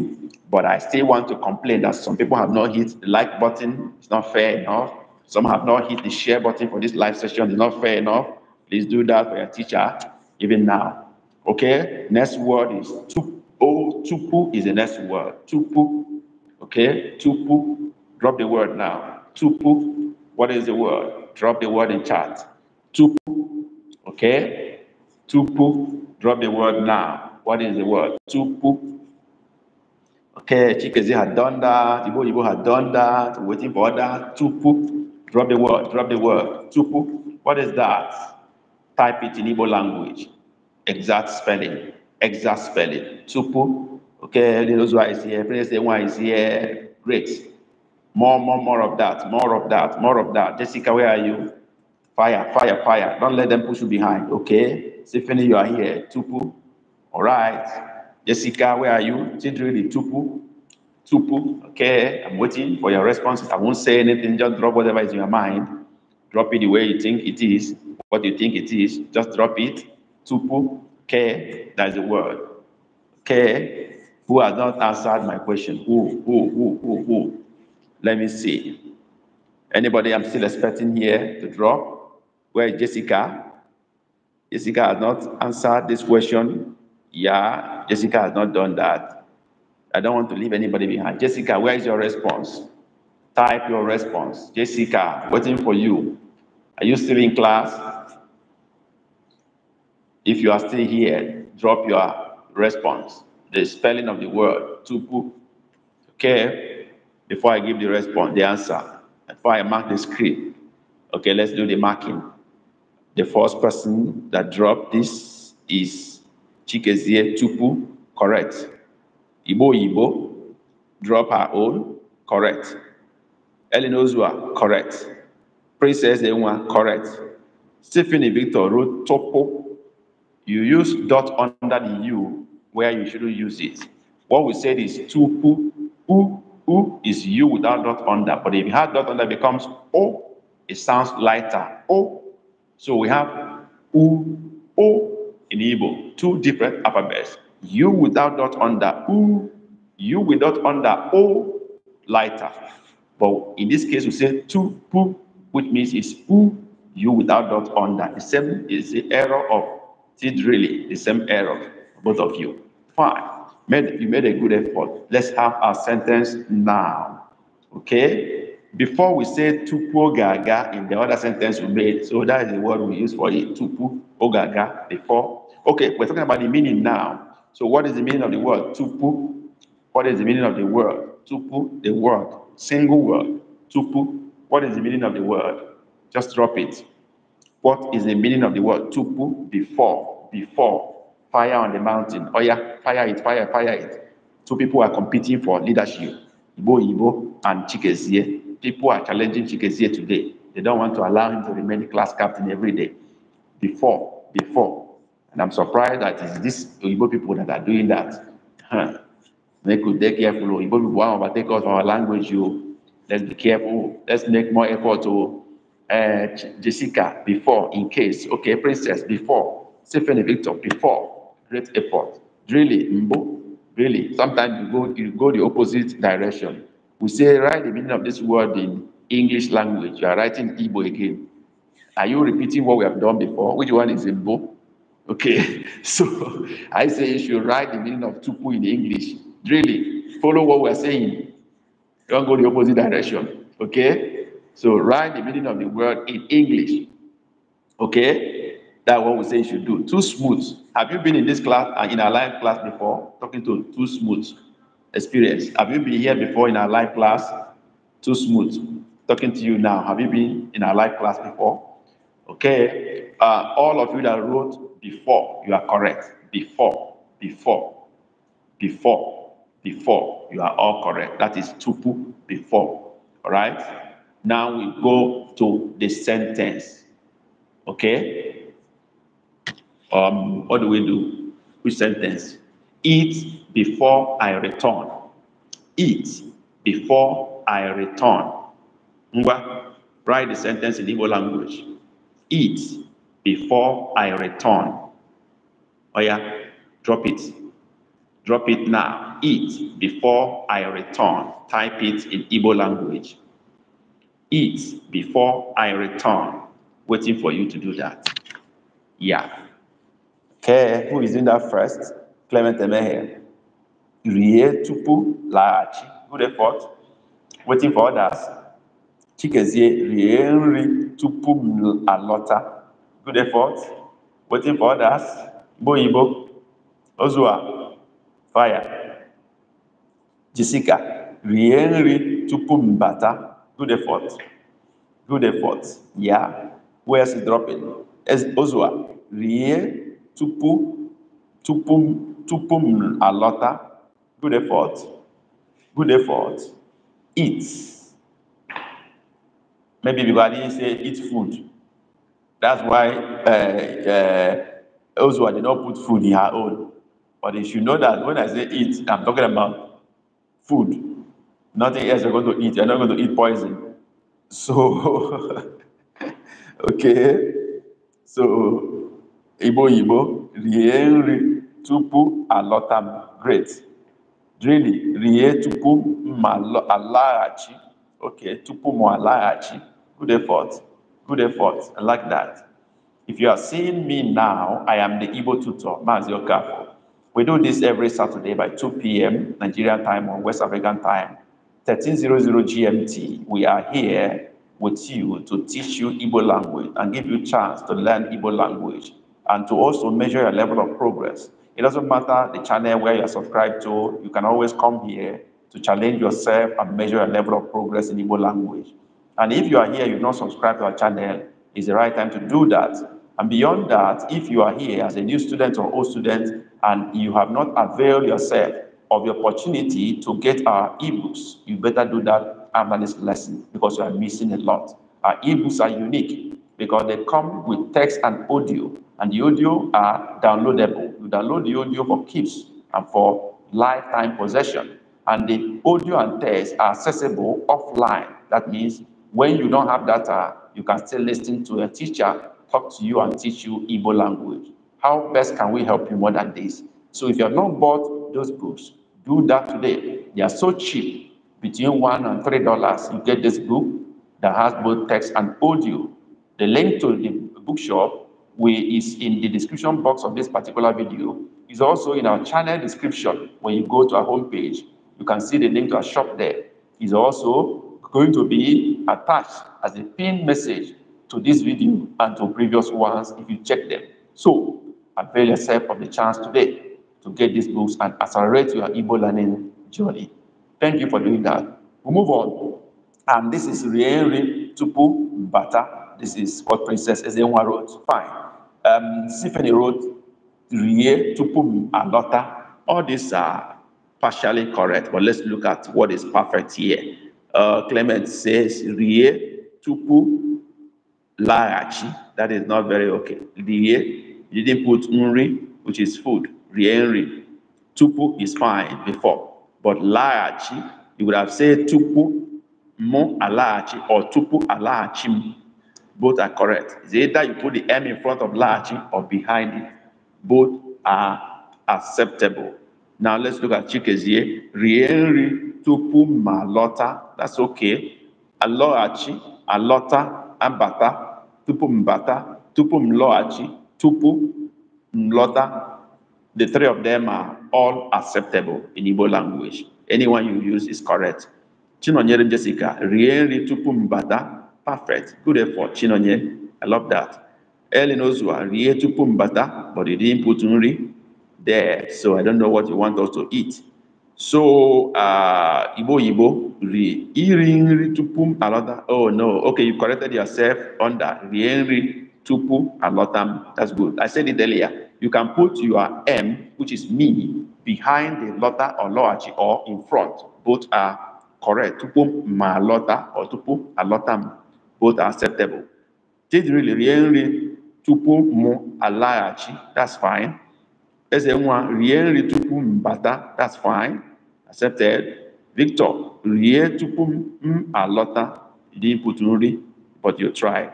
but i still want to complain that some people have not hit the like button it's not fair enough some have not hit the share button for this live session it's not fair enough please do that for your teacher even now okay next word is tupu oh tupu is the next word tupu okay tupu drop the word now tupu what is the word drop the word in chat. Tupu. Okay? Tupu. Drop the word now. What is the word? Tupu. Okay, Chikezi had done that. Ibo Ibo had done that. Waiting for that. Tupu. Drop the word. Drop the word. Tupu. What is that? Type it in Igbo language. Exact spelling. Exact spelling. Tupu. Okay, little is here. Prince one is here. Great. More, more, more of that, more of that, more of that. Jessica, where are you? Fire, fire, fire. Don't let them push you behind. Okay. Stephanie, you are here. Tupu. All right. Jessica, where are you? Chidrili, Tupu. Tupu. Okay. I'm waiting for your responses. I won't say anything. Just drop whatever is in your mind. Drop it the way you think it is. What you think it is. Just drop it. Tupu. Okay. That is the word. Okay. Who has not answered my question? Who, who, who, who, who? Let me see. Anybody I'm still expecting here to draw? Where is Jessica? Jessica has not answered this question. Yeah, Jessica has not done that. I don't want to leave anybody behind. Jessica, where is your response? Type your response. Jessica, waiting for you. Are you still in class? If you are still here, drop your response. The spelling of the word, tupu. Okay before I give the response, the answer, before I mark the script. Okay, let's do the marking. The first person that dropped this is Chikezie Tupu, correct. Ibo Ibo, drop her own, correct. Ellen Ozua, correct. Princess Ewa, correct. Stephanie Victor wrote Topo. You use dot under the U where you shouldn't use it. What we said is Tupu, U U is U without dot under. But if you have dot under, it becomes O. Oh, it sounds lighter. O. Oh. So we have U, O in Igbo. Two different alphabets. U without dot under. U. U without under. O. Lighter. But in this case, we say two, pu, which means it's U, U without dot under. The same is the error of really the same error, both of you. Fine. Made, you made a good effort. Let's have our sentence now. Okay? Before we say tupu gaga in the other sentence we made, so that is the word we use for it, tupu ogaga before. Okay, we're talking about the meaning now. So what is the meaning of the word? Tupu. What is the meaning of the word? Tupu, the word. Single word. Tupu. What is the meaning of the word? Just drop it. What is the meaning of the word? Tupu, before. Before fire on the mountain. Oh yeah, fire it, fire, fire it. Two people are competing for leadership. Ibo Ibo and Chikezie. People are challenging Chikezie today. They don't want to allow him to remain class captain every day. Before, before. And I'm surprised that it's these Igbo people that are doing that. Huh. Make could be careful. Igbo people want to overtake us from our language. You, let's be careful. Let's make more effort to uh, eh, Jessica before, in case. Okay, Princess, before. Stephanie Victor, before great effort. Really, Mbo, really. Sometimes you go, you go the opposite direction. We say, write the meaning of this word in English language. You are writing Igbo again. Are you repeating what we have done before? Which one is Igbo? Okay, <laughs> so I say you should write the meaning of tupu in English. Really, follow what we're saying. Don't go the opposite direction. Okay, so write the meaning of the word in English. Okay, that's what we say you should do. Too smooth. Have you been in this class and uh, in our live class before? Talking to too smooth experience. Have you been here before in our live class? Too smooth. Talking to you now. Have you been in our live class before? Okay. Uh, all of you that wrote before, you are correct. Before, before, before, before, you are all correct. That is tupu before. All right. Now we go to the sentence. Okay. um, what do we do? Which sentence? Eat before I return. Eat before I return. Ngwa, write the sentence in Igbo language. Eat before I return. Oh yeah, drop it. Drop it now. Eat before I return. Type it in Igbo language. Eat before I return. Waiting for you to do that. Yeah. Care, who is doing that first, Clement Emehe, Rie Tupu Laachi, good effort, waiting for others. Chikezie Rie Nri Tupu Alota, good effort, waiting for others. Boyibo, Ozua, fire. Jessica, Rie Nri Tupu Mbata, good effort, good effort, yeah. Where's dropping? Ozua, Rie tupu tupu tupu m alọta good effort good effort eat maybe because i didn't say eat food that's why uh, uh, Oswald did not put food in her own but if you know that when i say eat i'm talking about food nothing else you're going to eat you're not going to eat poison so <laughs> okay so Igbo Igbo rie nri tupu alọta great really rie tupu ma alaghachi okay tupu m alaghachi good effort good effort I like that if you are seeing me now I am the Igbo tutor Mazi kafu. we do this every Saturday by 2 p.m. Nigerian time or West African time 1300 GMT we are here with you to teach you Igbo language and give you chance to learn Igbo language and to also measure your level of progress. It doesn't matter the channel where you're subscribed to, you can always come here to challenge yourself and measure your level of progress in Igbo language. And if you are here, you have not subscribed to our channel, it's the right time to do that. And beyond that, if you are here as a new student or old student and you have not availed yourself of the opportunity to get our ebooks, you better do that after this lesson because you are missing a lot. Our ebooks are unique because they come with text and audio, and the audio are downloadable. You download the audio for keeps and for lifetime possession. And the audio and text are accessible offline. That means when you don't have data, you can still listen to a teacher talk to you and teach you Igbo language. How best can we help you more than this? So if you have not bought those books, do that today. They are so cheap, between one and three dollars. You get this book that has both text and audio the link to the bookshop we, is in the description box of this particular video. It's also in our channel description. When you go to our homepage, you can see the link to our shop there. It's also going to be attached as a pinned message to this video and to previous ones if you check them. So avail yourself of the chance today to get these books and accelerate your Igbo learning journey. Thank you for doing that. We move on. And this is Rienri Tupu Bata this is what Princess Ezenwa wrote. Fine. Um, Stephanie wrote Rie, Tupum, Alota. All these are partially correct, but let's look at what is perfect here. Uh, Clement says Rie, Tupu, Laachi. That is not very okay. Rie, you didn't put Nri, which is food. Rie, Nri. Tupu is fine before, but Laachi, you would have said Tupu, Mo, Alachi, or Tupu, Alachim. Both are correct. It's either you put the M in front of Lachi or behind it. Both are acceptable. Now let's look at Chikezie. Rienri tupu malota. That's okay. Aloachi, alota, ambata, tupu mbata, tupu mloachi, tupu mlota. The three of them are all acceptable in Igbo language. Anyone you use is correct. Chinonyere Jessica, rienri tupu mbata, perfect good effort chinonye i love that ellen ozua rie tupu m but they didn't put nuri there so i don't know what you want us to eat so uh, ibo, igbo ri iri nri tupu m alọta oh no okay you corrected yourself on that rie nri tupu alọta m that's good i said it earlier you can put your m which is me behind the lota or lọghachi or in front both are correct tupu ma alọta or tupu alọta m both are acceptable. rie nri tupu mụ alaghachi that's fine. Eze nwa rie nri tupu m bata that's fine accepted. Victor rie tupu m alọta you didn't put nri but you tried.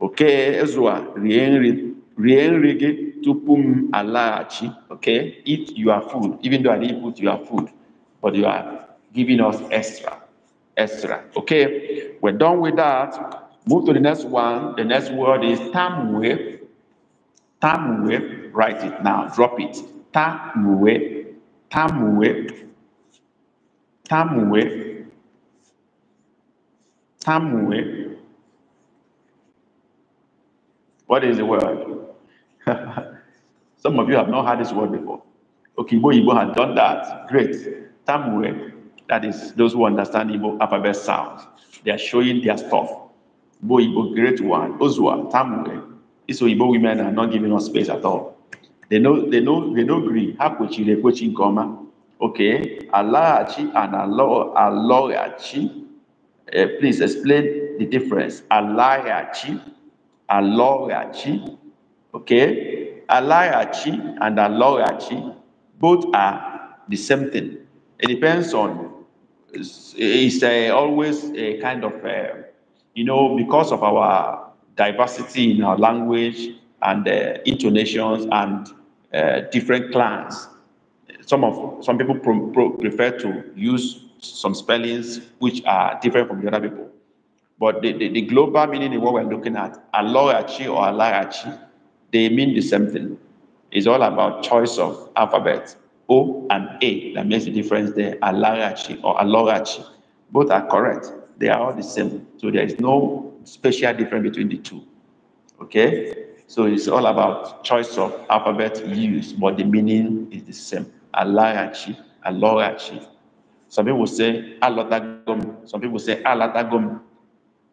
Okay Ezra rie nri rie nri gị tupu m alaghachi okay eat your food even though I didn't put your food but you are giving us extra. Ezra. Okay, we're done with that. Move to the next one. The next word is Tamwe. Tamwe, write it now, drop it. Tamwe, Tamwe, Tamwe, Tamwe. What is the word? <laughs> Some of you have not heard this word before. Okay, Igbo Igbo had done that. Great. Tamwe. That is, those who understand Igbo alphabet sounds. They are showing their stuff. Igbo, Igbo, great one, Ozua, Tamwe. So Igbo women are not giving us space at all. They know, they know, they know Greek. Hakuchi, Rekuchi, Goma. Okay. Alaachi and Aloachi. Uh, eh, please explain the difference. Alaachi, Aloachi. Okay. Alaachi and Aloachi both are the same thing. It depends on it's, uh, always a kind of, uh, you know, because of our diversity in our language and uh, intonations and eh, different clans, some of some people pro, pro, prefer to use some spellings which are different from the other people. But the, the, the global meaning of what we're looking at, Aloyachi or Alayachi, they mean the same thing. It's all about choice of alphabet. O and A that makes the difference there, Alarachi or Alorachi. Both are correct. They are all the same. So there is no special difference between the two. Okay? So it's all about choice of alphabet used, but the meaning is the same. Alarachi, Alorachi. Some people say Alatagom. Some people say Alatagom.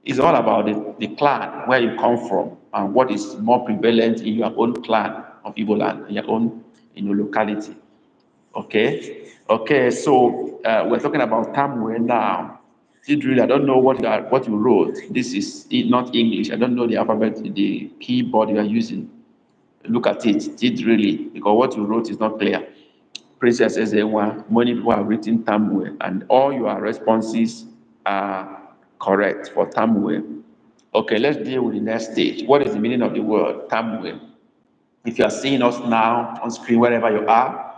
It's all about the, the clan, where you come from, and what is more prevalent in your own clan of Igbo land, in your own in your locality. Okay, okay. So uh, we're talking about Tamwe now. really? I don't know what that, what you wrote. This is not English. I don't know the alphabet, the keyboard you are using. Look at it, Did really? because what you wrote is not clear. Princess Ezewa, many people have written Tamwe, and all your responses are correct for Tamwe. Okay, let's deal with the next stage. What is the meaning of the word Tamwe? If you are seeing us now on screen, wherever you are,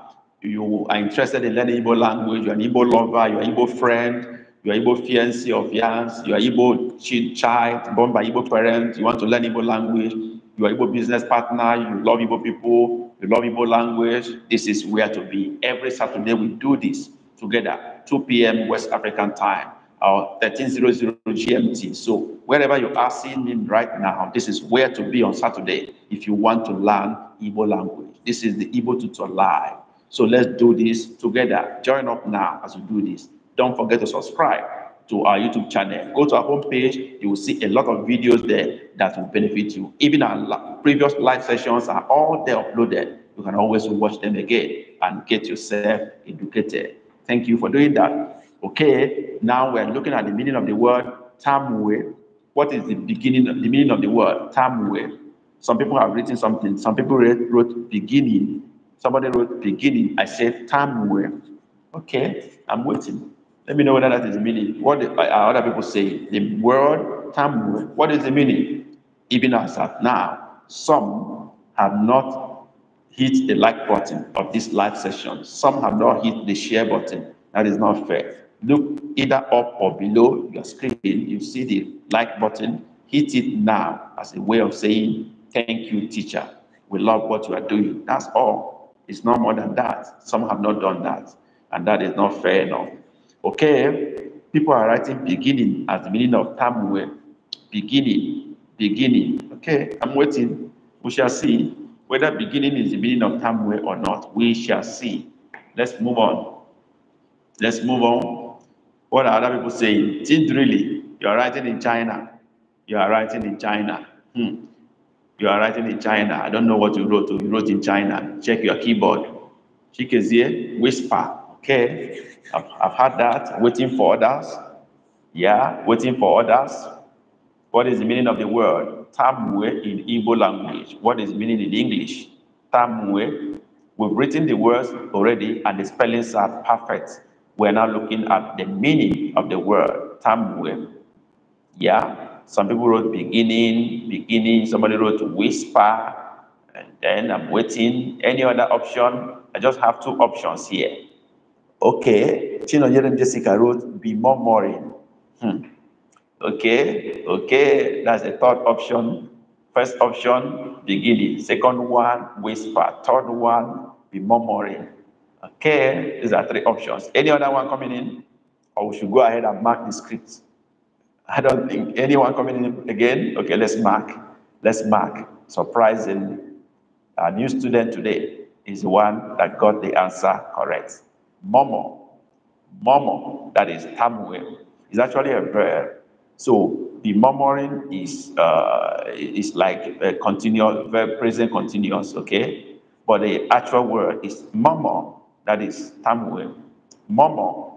you are interested in learning Igbo language, you're an Igbo lover, you're an Igbo friend, you're an Igbo fiancé of yours, you're an Igbo child born by Igbo parents, you want to learn Igbo language, you're an Igbo business partner, you love Igbo people, you love Igbo language, this is where to be. Every Saturday we do this together, 2 p.m. West African time or 1300 GMT. So wherever you are seeing me right now, this is where to be on Saturday if you want to learn Igbo language. This is the Igbo Tutor Live. So let's do this together. Join up now as we do this. Don't forget to subscribe to our YouTube channel. Go to our homepage. You will see a lot of videos there that will benefit you. Even our previous live sessions are all there uploaded. You can always watch them again and get yourself educated. Thank you for doing that. Okay, now we're looking at the meaning of the word Tamwe. What is the beginning, the meaning of the word Tamwe? Some people have written something. Some people wrote beginning Somebody wrote beginning. I said time where. Okay, I'm waiting. Let me know whether that is the meaning. What are uh, uh, other people saying? The word Samuel. What is the meaning? Even as at now, some have not hit the like button of this live session. Some have not hit the share button. That is not fair. Look either up or below your screen. You see the like button. Hit it now as a way of saying, Thank you, teacher. We love what you are doing. That's all. It's not more than that. Some have not done that, and that is not fair enough. Okay, people are writing beginning as the meaning of Tamuel. Beginning, beginning. Okay, I'm waiting. We shall see whether beginning is the meaning of Tamuel or not. We shall see. Let's move on. Let's move on. What are other people saying? Tindrili, you are writing in China. You are writing in China. Hmm. You are writing in China. I don't know what you wrote. You wrote in China. Check your keyboard. here. whisper. Okay, I've, I've had that. Waiting for others. Yeah, waiting for others. What is the meaning of the word? Tamwe in Igbo language. What is meaning in English? Tamwe. We've written the words already and the spellings are perfect. We're now looking at the meaning of the word. Tamwe. Yeah. Some people wrote beginning, beginning. Somebody wrote whisper, and then I'm waiting. Any other option? I just have two options here. Okay. Chinonyere Jessica wrote be murmuring. Hmm. Okay, okay. That's the third option. First option, beginning. Second one, whisper. Third one, be murmuring. Okay, these are three options. Any other one coming in? Or we should go ahead and mark the script. I don't think anyone coming in again. Okay, let's mark. Let's mark. Surprisingly, a new student today is the one that got the answer correct. Momo. Momo, that is Tamuel, is actually a verb. So the murmuring is uh, is like a continuous verb present continuous, okay? But the actual word is momo, that is Tamuel. Momo,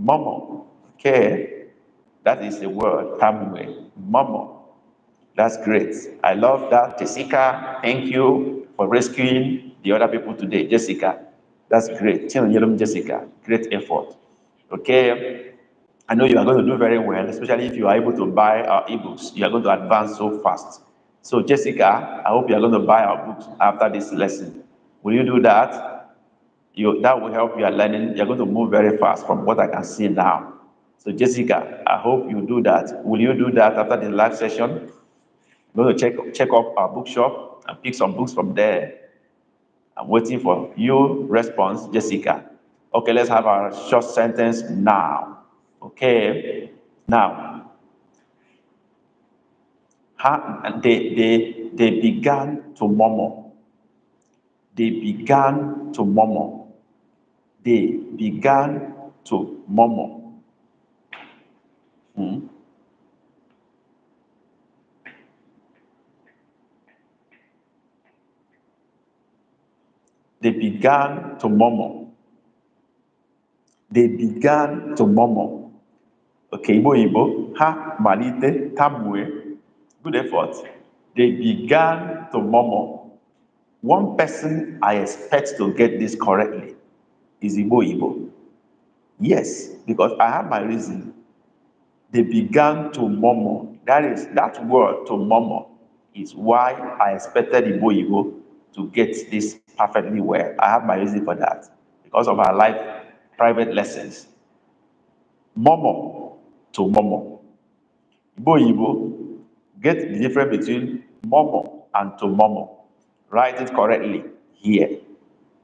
momo. Okay. That is the word, Tamwe, Momo. That's great. I love that. Jessica, thank you for rescuing the other people today. Jessica, that's great. Jessica, great effort. Okay, I know you are going to do very well, especially if you are able to buy our ebooks. You are going to advance so fast. So, Jessica, I hope you are going to buy our books after this lesson. Will you do that? You, that will help your learning. You're going to move very fast from what I can see now. So Jessica, I hope you do that. Will you do that after the live session? Go to check check up our bookshop and pick some books from there. I'm waiting for your response, Jessica. Okay, let's have our short sentence now. Okay, now. they, they, they began to murmur. They began to murmur. They began to murmur. Hmm? They began to murmur. They began to murmur. Okay, Ibo Ibo, ha, malite, tabue. Good effort. They began to murmur. One person I expect to get this correctly is Ibo Ibo. Yes, because I have my reason they began to murmur. That is, that word to murmur is why I expected Igbo to get this perfectly well. I have my reason for that because of our life private lessons. Murmur to murmur. Igbo get the difference between murmur and to murmur. Write it correctly here.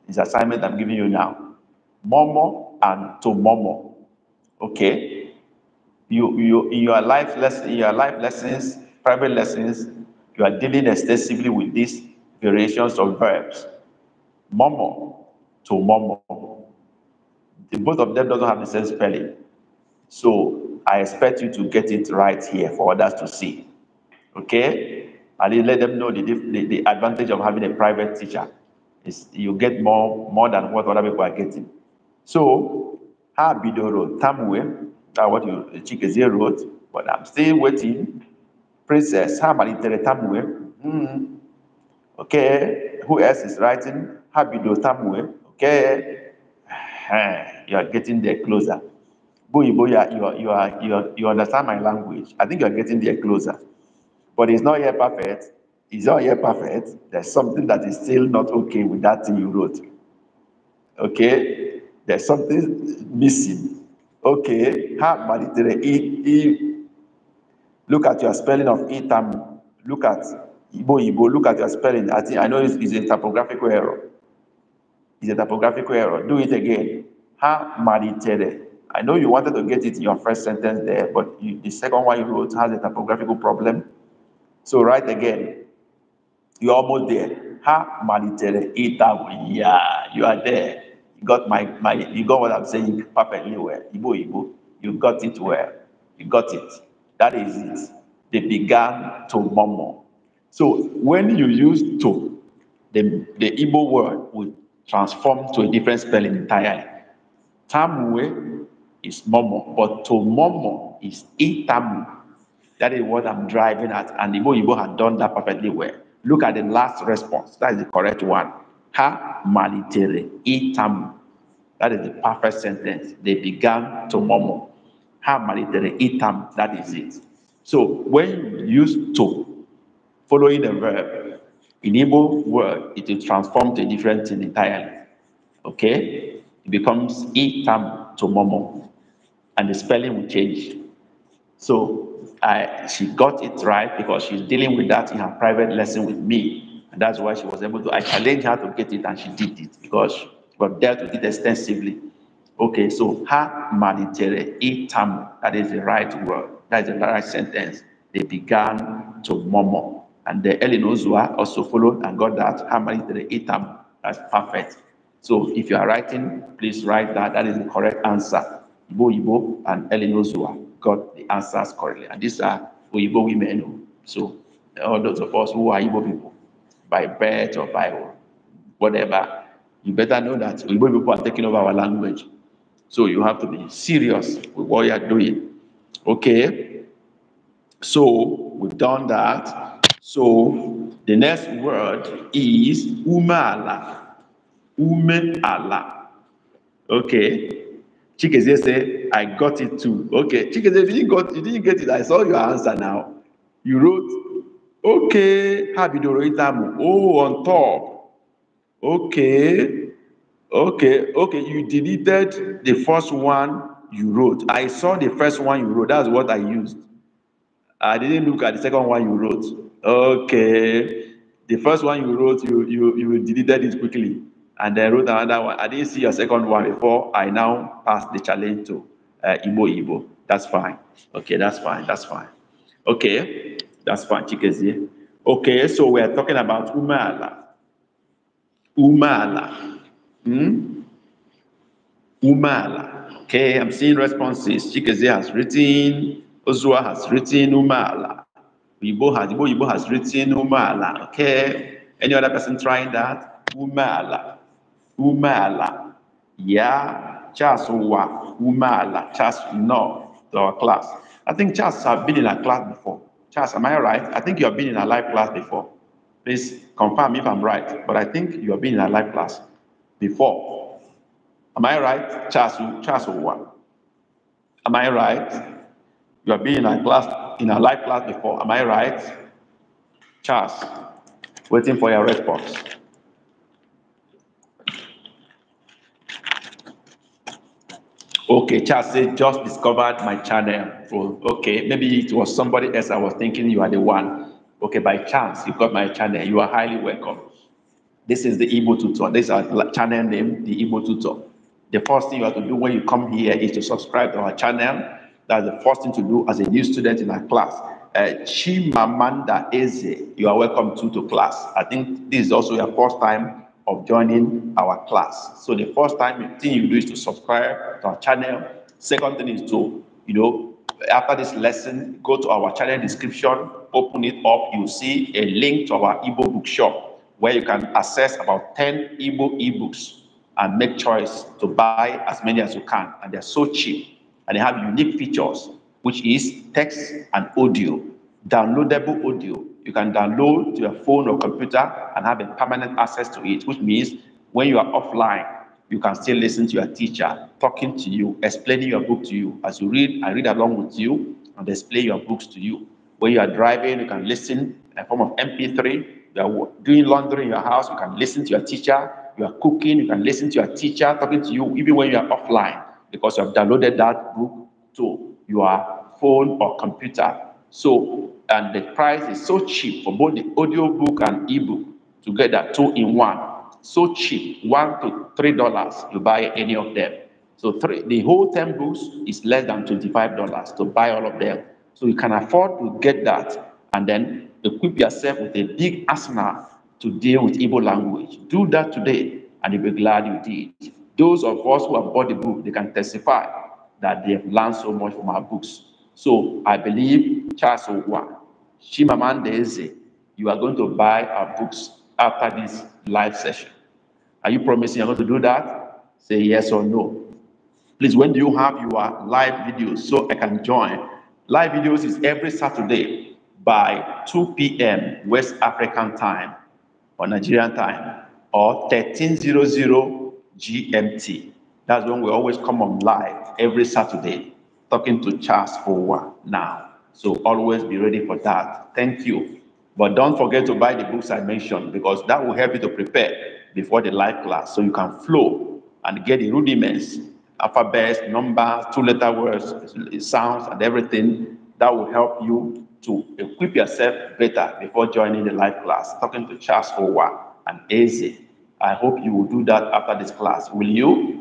This assignment I'm giving you now. Murmur and to murmur. Okay? you, you, in your life lesson, your life lessons, private lessons, you are dealing extensively with these variations of verbs. Momo to momo. The, both of them doesn't have the same spelling. So I expect you to get it right here for others to see. Okay? And let them know the, the, the advantage of having a private teacher. Is you get more more than what other people are getting. So, ha bidoro tamwe what you Chikezie wrote, but I'm still waiting. Princess Hamalitere Tamwe. Mm. Okay. Who else is writing? Habido Tamwe. Okay. <sighs> You are getting there closer. Boy, boy, you are, you are, you are, you, are, you understand my language. I think you are getting there closer. But it's not yet perfect. It's not yet perfect. There's something that is still not okay with that thing you wrote. Okay? There's something missing. Okay. ha kpalitere i look at your spelling of itam um, look at ibo ibo. look at your spelling i think i know it's, it's a typographical error it's a typographical error do it again ha malitere i know you wanted to get it in your first sentence there but you, the second one you wrote has a typographical problem so write again you're almost there ha malitere itam yeah you are there you got my, my you got what I'm saying perfectly well. Ibo Ibo, you got it well. You got it. That is it. They began to murmur. So when you use to, the, the Igbo word would transform to a different spelling entirely. Tamwe is momo, but to momo is itamu. That is what I'm driving at. And Igbo Igbo had done that perfectly well. Look at the last response. That is the correct one ha malitere itamu. That is the perfect sentence. They began to murmur. Ha malitere itam. That is it. So when you use to following a verb, in Igbo word, it will transform to a different thing entirely. Okay? It becomes itam to murmur. And the spelling will change. So I, she got it right because she's dealing with that in her private lesson with me. And that's why she was able to, I challenged her to get it and she did it because we've dealt with it extensively. Okay, so her manitere itam, that is the right word, that is the right sentence. They began to murmur. And the Elinozua also followed and got that ha manitere itam, that's perfect. So if you are writing, please write that, that is the correct answer. Ibo Ibo and Elinozua got the answers correctly. And these are Ibo women. Oh. So all those of us who are Ibo people, by birth or by whatever, you better know that Igbo people are taking over our language. So you have to be serious with what you are doing. Okay? So we've done that. So the next word is umala. Ume Okay? Chikeze say, I got it too. Okay. Chikeze, if you didn't, got, you didn't get it, I saw your answer now. You wrote oke ha bidoro ịtamụ oh on top okay okay okay you deleted the first one you wrote i saw the first one you wrote that's what i used i didn't look at the second one you wrote okay the first one you wrote you you you deleted it quickly and then wrote another one i didn't see your second one before i now pass the challenge to uh, Igbo Igbo. That's fine. Okay, that's fine. That's fine. Okay. That's what Chikezie. Okay, so we're talking about Umala. Umala. Hmm? Umala. Okay, I'm seeing responses. Chikezie has written, Ozua has written Umala. Yibo has, Yibo, has written Umala. Okay, any other person trying that? Umala. Umala. Yeah, Charles Umala. Charles, no, to our class. I think Charles have been in our class before. Charles, am I right? I think you have been in a live class before. Please confirm if I'm right, but I think you have been in a live class before. Am I right? Charles, Charles one. Am I right? You have been in a class in a live class before. Am I right? Charles, waiting for your response. Okay, Charles said, just discovered my channel. okay, maybe it was somebody else I was thinking you are the one. Okay, by chance, you got my channel. You are highly welcome. This is the Igbo tutor. This is our channel name, the Igbo tutor. The first thing you have to do when you come here is to subscribe to our channel. That's the first thing to do as a new student in our class. Uh, Chimamanda Eze, you are welcome to, to class. I think this is also your first time of joining our class. So the first time thing you do is to subscribe to our channel. Second thing is to, you know, after this lesson, go to our channel description, open it up, you see a link to our ebook bookshop where you can access about 10 ebook ebooks and make choice to buy as many as you can. And they're so cheap and they have unique features, which is text and audio, downloadable audio, you can download to your phone or computer and have a permanent access to it, which means when you are offline, you can still listen to your teacher talking to you, explaining your book to you. As you read, I read along with you and explain your books to you. When you are driving, you can listen in a form of MP3. You are doing laundry in your house, you can listen to your teacher. You are cooking, you can listen to your teacher talking to you, even when you are offline, because you have downloaded that book to your phone or computer so, and the price is so cheap for both the audiobook and ebook together, two in one. So cheap, one to three dollars, you buy any of them. So three, the whole 10 books is less than $25 to buy all of them. So you can afford to get that and then equip yourself with a big arsenal to deal with Igbo language. Do that today and you'll be glad you did. Those of us who have bought the book, they can testify that they have learned so much from our books. So I believe Charles Owa, Shimamandeze, you are going to buy our books after this live session. Are you promising you're going to do that? Say yes or no. Please, when do you have your live videos so I can join? Live videos is every Saturday by 2 p.m. West African time or Nigerian time or 1300 GMT. That's when we always come on live every Saturday talking to Charles one now. So always be ready for that. Thank you. But don't forget to buy the books I mentioned because that will help you to prepare before the live class so you can flow and get the rudiments, alphabets, numbers, two letter words, sounds, and everything that will help you to equip yourself better before joining the live class. Talking to Charles one and easy. I hope you will do that after this class. Will you?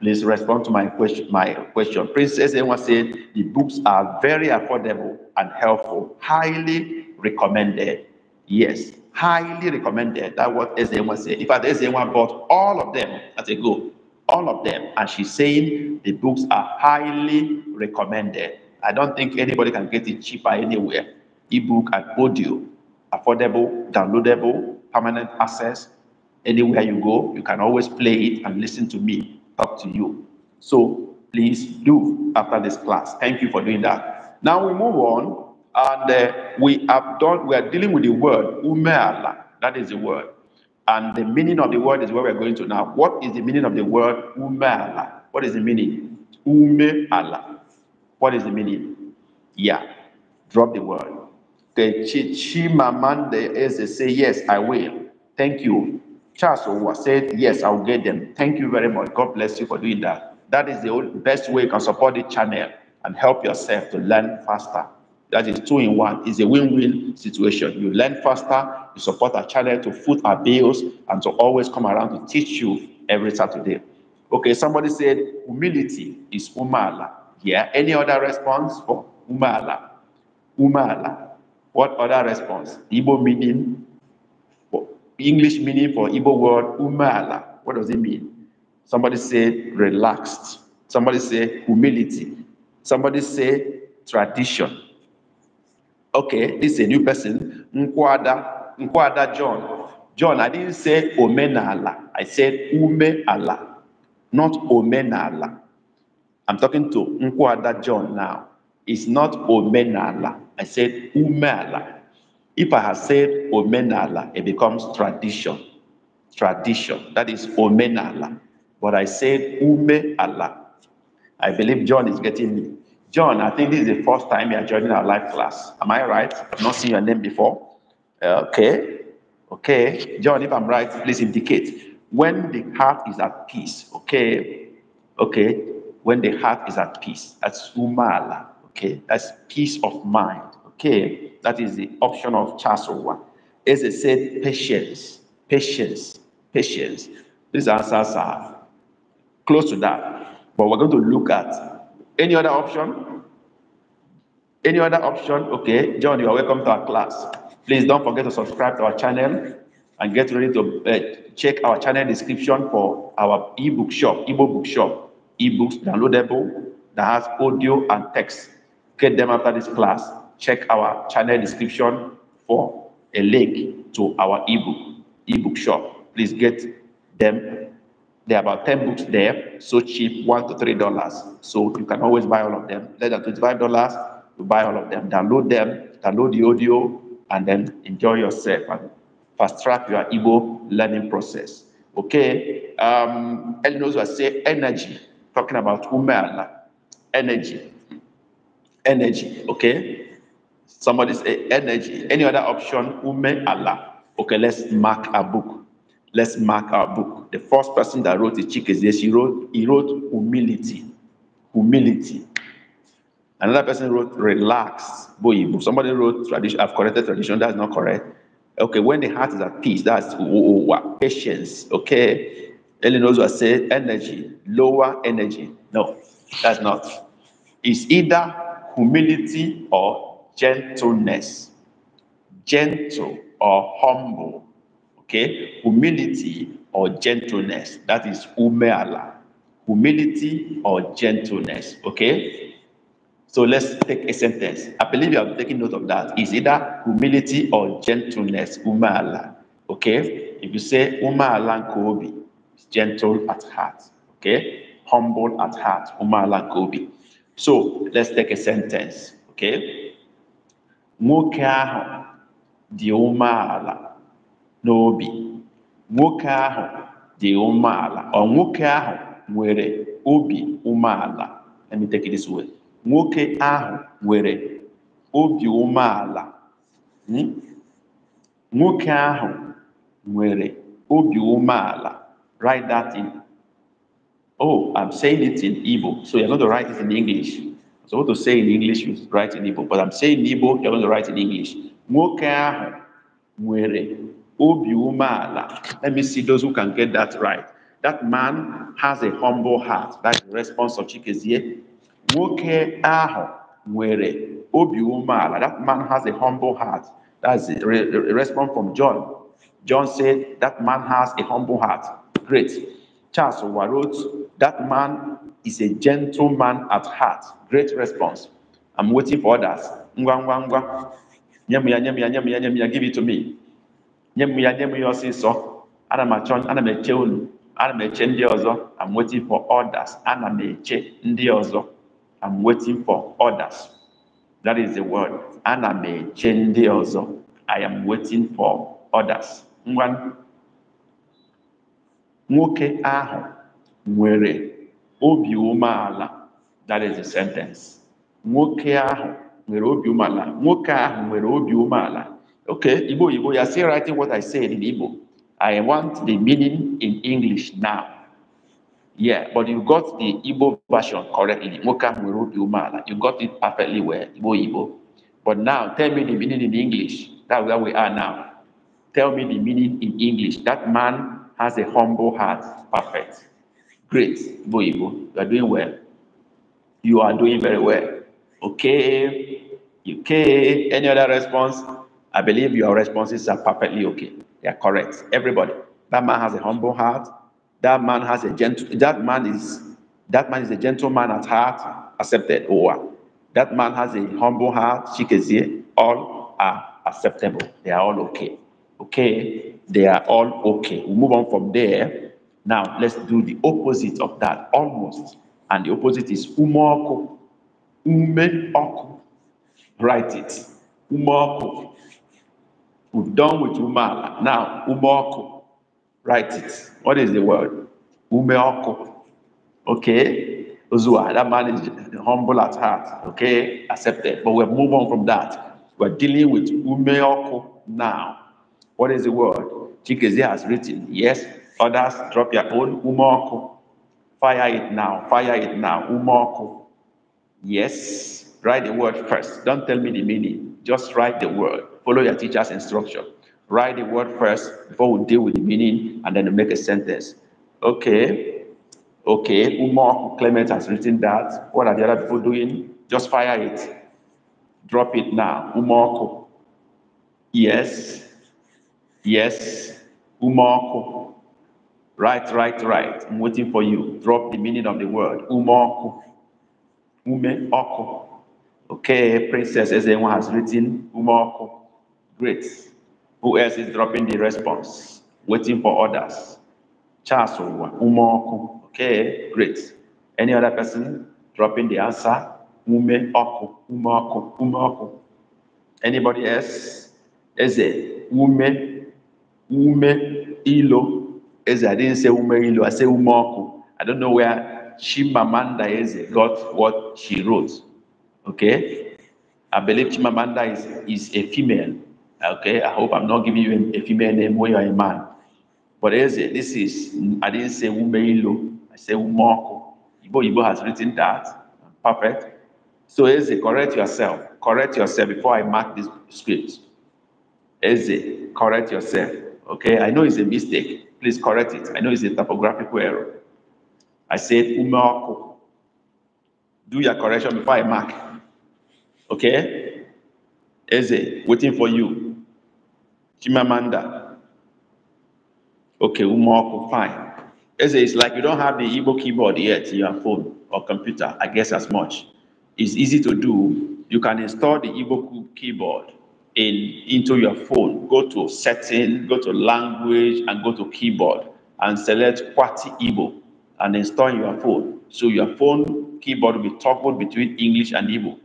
Please respond to my question. My question. Princess Ewa said the books are very affordable and helpful, highly recommended. Yes, highly recommended. That what sn said. In fact, sn bought all of them as a go, all of them. And she's saying the books are highly recommended. I don't think anybody can get it cheaper anywhere. Ebook and audio, affordable, downloadable, permanent access. Anywhere you go, you can always play it and listen to me up to you. So please do after this class. Thank you for doing that. Now we move on, and uh, we have done. We are dealing with the word umeala. That is the word, and the meaning of the word is where we are going to now. What is the meaning of the word umeala? What is the meaning? Umeala. What is the meaning? Yeah, drop the word. The chichimamande is say yes, I will. Thank you. Charles Owa said, Yes, I'll get them. Thank you very much. God bless you for doing that. That is the best way you can support the channel and help yourself to learn faster. That is two in one. It's a win win situation. You learn faster, you support our channel to foot our bills, and to always come around to teach you every Saturday. Okay, somebody said humility is umala. Yeah, any other response for umala? Umala. What other response? Igbo meaning English meaning for Igbo word umala. What does it mean? Somebody say relaxed. Somebody say humility. Somebody say tradition. Okay, this is a new person. Nkwada, Nkwada John. John, I didn't say omenala. I said umeala, not omenala. I'm talking to Nkwada John now. It's not omenala. I said umeala. If I had said omenala, it becomes tradition. Tradition. That is omenala. But I said umeala. I believe John is getting me. John, I think this is the first time you are joining our live class. Am I right? I've not seen your name before. Uh, okay. Okay. John, if I'm right, please indicate. When the heart is at peace. Okay. Okay. When the heart is at peace. That's umala. Okay. That's peace of mind. Okay. That is the option of Charles one. As I said, patience, patience, patience. These answers are close to that. But we're going to look at any other option. Any other option? Okay, John, you are welcome to our class. Please don't forget to subscribe to our channel and get ready to uh, check our channel description for our ebook shop, ebook book shop, ebooks downloadable that has audio and text. Get them after this class check our channel description for a link to our ebook, ebook shop. Please get them. There are about 10 books there, so cheap, one to three dollars. So you can always buy all of them. Less than 25 dollars, to buy all of them, download them, download the audio, and then enjoy yourself and fast track your Igbo learning process. Okay, um, Elinos will say energy, talking about umela, energy, energy, okay? somebody's energy, any other option, Ume Allah. Okay, let's mark a book. Let's mark our book. The first person that wrote the chick is this. He wrote, he wrote humility. Humility. Another person wrote relax. Boy, Somebody wrote tradition. I've corrected tradition. That's not correct. Okay, when the heart is at peace, that's patience. Okay. Eleanor said energy, lower energy. No, that's not. It's either humility or gentleness, gentle or humble, okay? Humility or gentleness, that is umeala. Humility or gentleness, okay? So let's take a sentence. I believe you are taking note of that. It's either humility or gentleness, umeala, okay? If you say umeala kobi, gentle at heart, okay? Humble at heart, umeala kobi. So let's take a sentence, okay? nwoke ahụ dị umeala n'obi nwoke ahụ dị umeala ọ nwoke ahụ nwere obi umeala let me take it this way nwoke ahụ nwere obi umeala hmm? nwoke ahụ nwere obi umeala write that in oh i'm saying it in Igbo so you're going to write it in English So what to say in English, you write in Igbo. But I'm saying Igbo, you're going to write in English. Nwoke ahụ obi umeala. Let me see those who can get that right. That man has a humble heart. That's the response of Chikezie. Nwoke ahụ obi umeala. That man has a humble heart. That's the response from John. John said, that man has a humble heart. Great. Charles wrote, That man is a gentleman at heart. Great response. I'm waiting for others. give it to me. Ana ana Ana ozo ọzọ. I'm waiting for others. Ana ndị ọzọ. I'm waiting for others. That is the word. Ana ọzọ. I am waiting for others nwoke ahụ nwere obi umeala that is the sentence nwoke ahụ nwere obi umeala nwoke ahụ nwere obi umeala okay igbo You ya still writing what i said in igbo i want the meaning in english now yeah but you got the igbo version correctly nwoke ahụ nwere obi umeala you got it perfectly well igbo Ibo. but now tell me the meaning in english that's where we are now tell me the meaning in english that man has a humble heart. Perfect. Great. Boibo, you are doing well. You are doing very well. Okay. Okay. Any other response? I believe your responses are perfectly okay. They are correct. Everybody. That man has a humble heart. That man has a gentle. That man is. That man is a gentleman at heart. Accepted. Oh, that man has a humble heart. She can see all are acceptable. They are all okay. Okay. They are all okay. We move on from there. Now let's do the opposite of that, almost. And the opposite is umoku. Umeoku. Write it. Umoku. We've done with umala. Now umoku. Write it. What is the word? Umeoku. Okay. Uzua, that man is humble at heart. Okay, accepted. But we'll move on from that. We're dealing with umeoko now. What is the word? Chikeze has written, yes, others drop your own umoku. Fire it now, fire it now, umoku. Yes, write the word first. Don't tell me the meaning. Just write the word. Follow your teacher's instruction. Write the word first before we deal with the meaning and then make a sentence. Okay, okay, umoku, Clement has written that. What are the other people doing? Just fire it. Drop it now, umoku. Yes, yes, Umoku. Right, right, right. I'm waiting for you. Drop the meaning of the word. Umoku. Umeoko. Okay, Princess As Ezewa has written Umoku. Great. Who else is dropping the response? Waiting for others. Charles Umoku. Okay, great. Any other person dropping the answer? Umeoko. Oku. Umoku. Anybody else? Eze. Ume ume ilo eze. I didn't say ume ilo, I say umoku. I don't know where Chimamanda Eze got what she wrote. Okay? I believe Chimamanda is, is a female. Okay? I hope I'm not giving you a, female name when you're a man. But Eze, this is, I didn't say ume ilo, I say umoku. Ibo Ibo has written that. Perfect. So Eze, correct yourself. Correct yourself before I mark this script. Eze, correct yourself. Okay, I know it's a mistake. Please correct it. I know it's a typographical error. I said umaku. Do your correction before I mark. Okay? Eze, waiting for you. Chimamanda. Okay, umaku, fine. Eze, it's like you don't have the Igbo keyboard yet in your phone or computer. I guess as much. It's easy to do. You can install the Igbo keyboard in into your phone, go to setting, go to language, and go to keyboard and select QWERTY Igbo and install your phone. So your phone keyboard will be toggled between English and Igbo.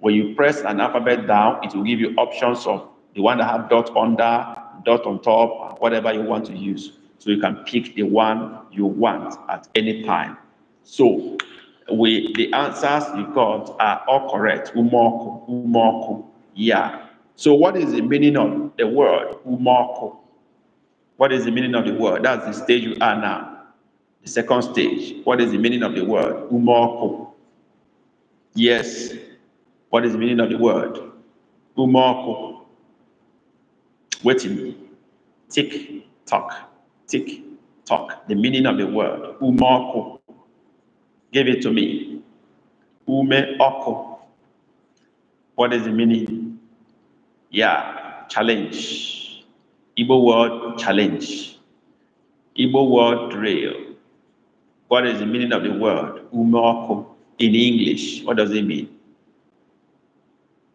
When you press an alphabet down, it will give you options of the one that have dot under, dot on top, whatever you want to use. So you can pick the one you want at any time. So we the answers you got are all correct. Umoku, umoku, yeah. So what is the meaning of the word umoko? What is the meaning of the word? That's the stage you are now. The second stage. What is the meaning of the word umoko? Yes. What is the meaning of the word umoko? Waiting. Tick tock. Tick tock. The meaning of the word umoko. Give it to me. Ume oko. What is the meaning? Yeah, challenge. Igbo word challenge. Igbo word rail. What is the meaning of the word? Umokum in English. What does it mean?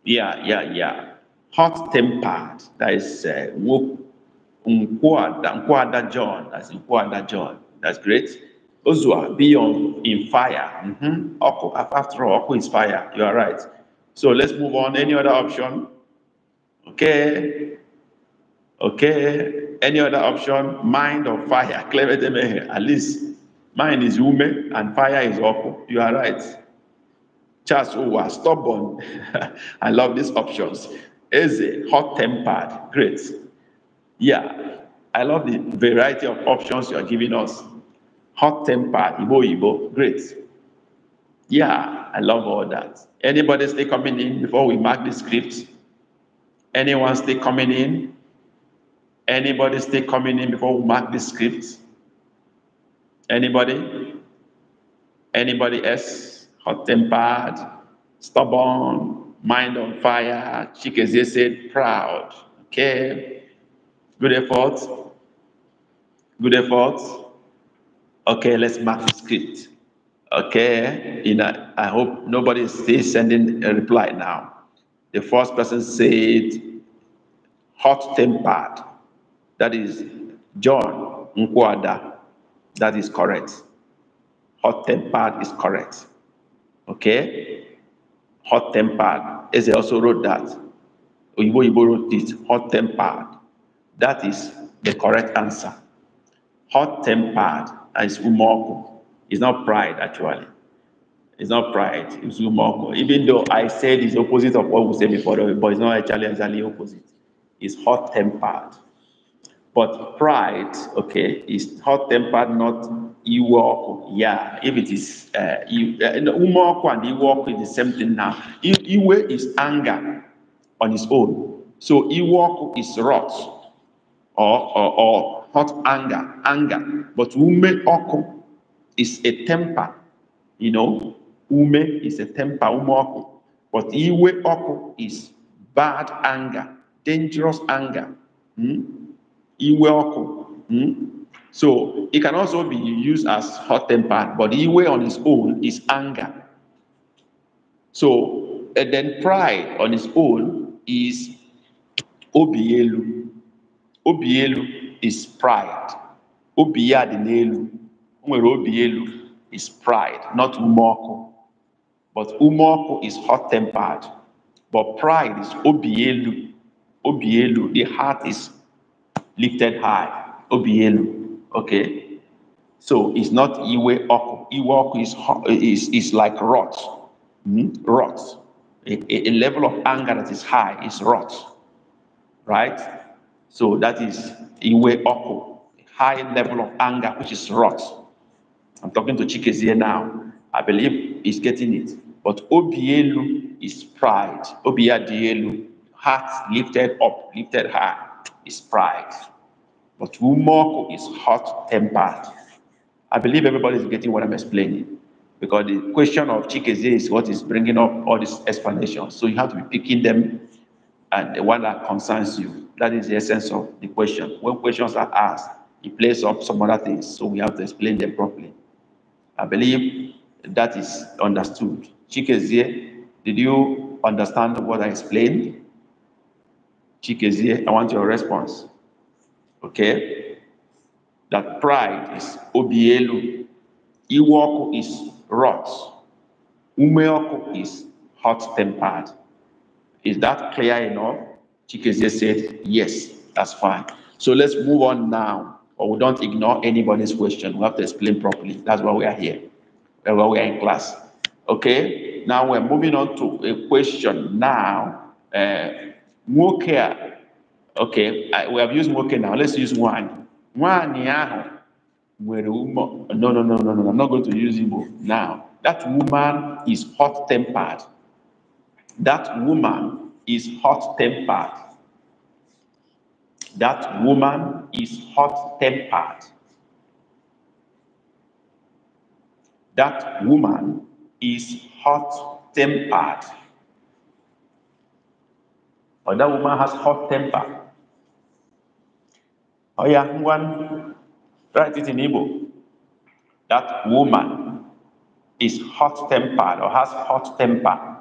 Yeah, yeah, yeah. Hot tempered. That is uh, Nkwada, John. That's Nkwada John. That's great. Ozua, be on in fire. Mm-hmm. After all, Oko is fire. You are right. So let's move on. Any other option? Okay. Okay. Any other option? Mind or fire? At least mind is human and fire is awful. You are right. Charles Owa, oh, stubborn. <laughs> I love these options. Easy, hot tempered. Great. Yeah. I love the variety of options you are giving us. Hot tempered, Ibo Ibo. Great. Yeah. I love all that. Anybody still coming in before we mark the script? Anyone still coming in? Anybody still coming in before we mark the script? Anybody? Anybody else? Hot tempered, stubborn, mind on fire, cheek as they said, proud. Okay. Good effort. Good effort. Okay, let's mark the script. Okay. You know, I hope nobody is still sending a reply now. The first person said, hot tempered. That is John Nkwada. That is correct. Hot tempered is correct. Okay? Hot tempered. Eze also wrote that. Oyibo Yibo wrote it. Hot tempered. That is the correct answer. Hot tempered is umoku. It's not pride, actually. It's not pride. It's humor. Even though I said it's opposite of what we said before, but it's not actually exactly opposite. It's hot tempered. But pride, okay, is hot tempered, not iwoku. Yeah, if it is uh, you, uh, and iwoku is the same thing now. Iwe is anger on its own. So iwoku is wrath or, or, or hot anger, anger. But ume is a temper, you know, Ume is a temper, umoku. But iwe oku is bad anger, dangerous anger. Hmm? Iwe oku. Hmm? So it can also be used as hot temper, but iwe on its own is anger. So and then pride on its own is obielu. Obielu is pride. Obiadinelu. Obielu is pride, not umoku. But Umoku is hot tempered. But pride is Obielu. Obielu. The heart is lifted high. Obielu. Okay. So it's not Iwe Oku. Iwe Oku is, is, is like rot. Mm-hmm. Rot. A, a, level of anger that is high is rot. Right? So that is Iwe Oku. High level of anger, which is rot. I'm talking to Chikezie now. I believe he's getting it. But Obielu is pride. Obiadielu, heart lifted up, lifted high, is pride. But Umoko is hot tempered. I believe everybody is getting what I'm explaining because the question of Chikeze is what is bringing up all these explanations. So you have to be picking them and the one that concerns you. That is the essence of the question. When questions are asked, it plays up some other things. So we have to explain them properly. I believe that is understood. Chikezie, did you understand what I explained? Chikezie, I want your response. Okay? That pride is obielu. Iwoku is rot. Umeoku is hot-tempered. Is that clear enough? Chikezie said, yes, that's fine. So let's move on now. Or we don't ignore anybody's question. We have to explain properly. That's why we are here. That's why we are in class. Okay, now we're moving on to a question now. Uh, eh, nwoke okay, I, we have used nwoke now. Let's use One One, ahụ No, no, no, no, no. I'm not going to use Igbo now. That woman is hot tempered. That woman is hot tempered. That woman is hot tempered. That woman is hot tempered. Or that woman has hot temper. Oh yeah, one write it in Igbo. That woman is hot tempered or has hot temper.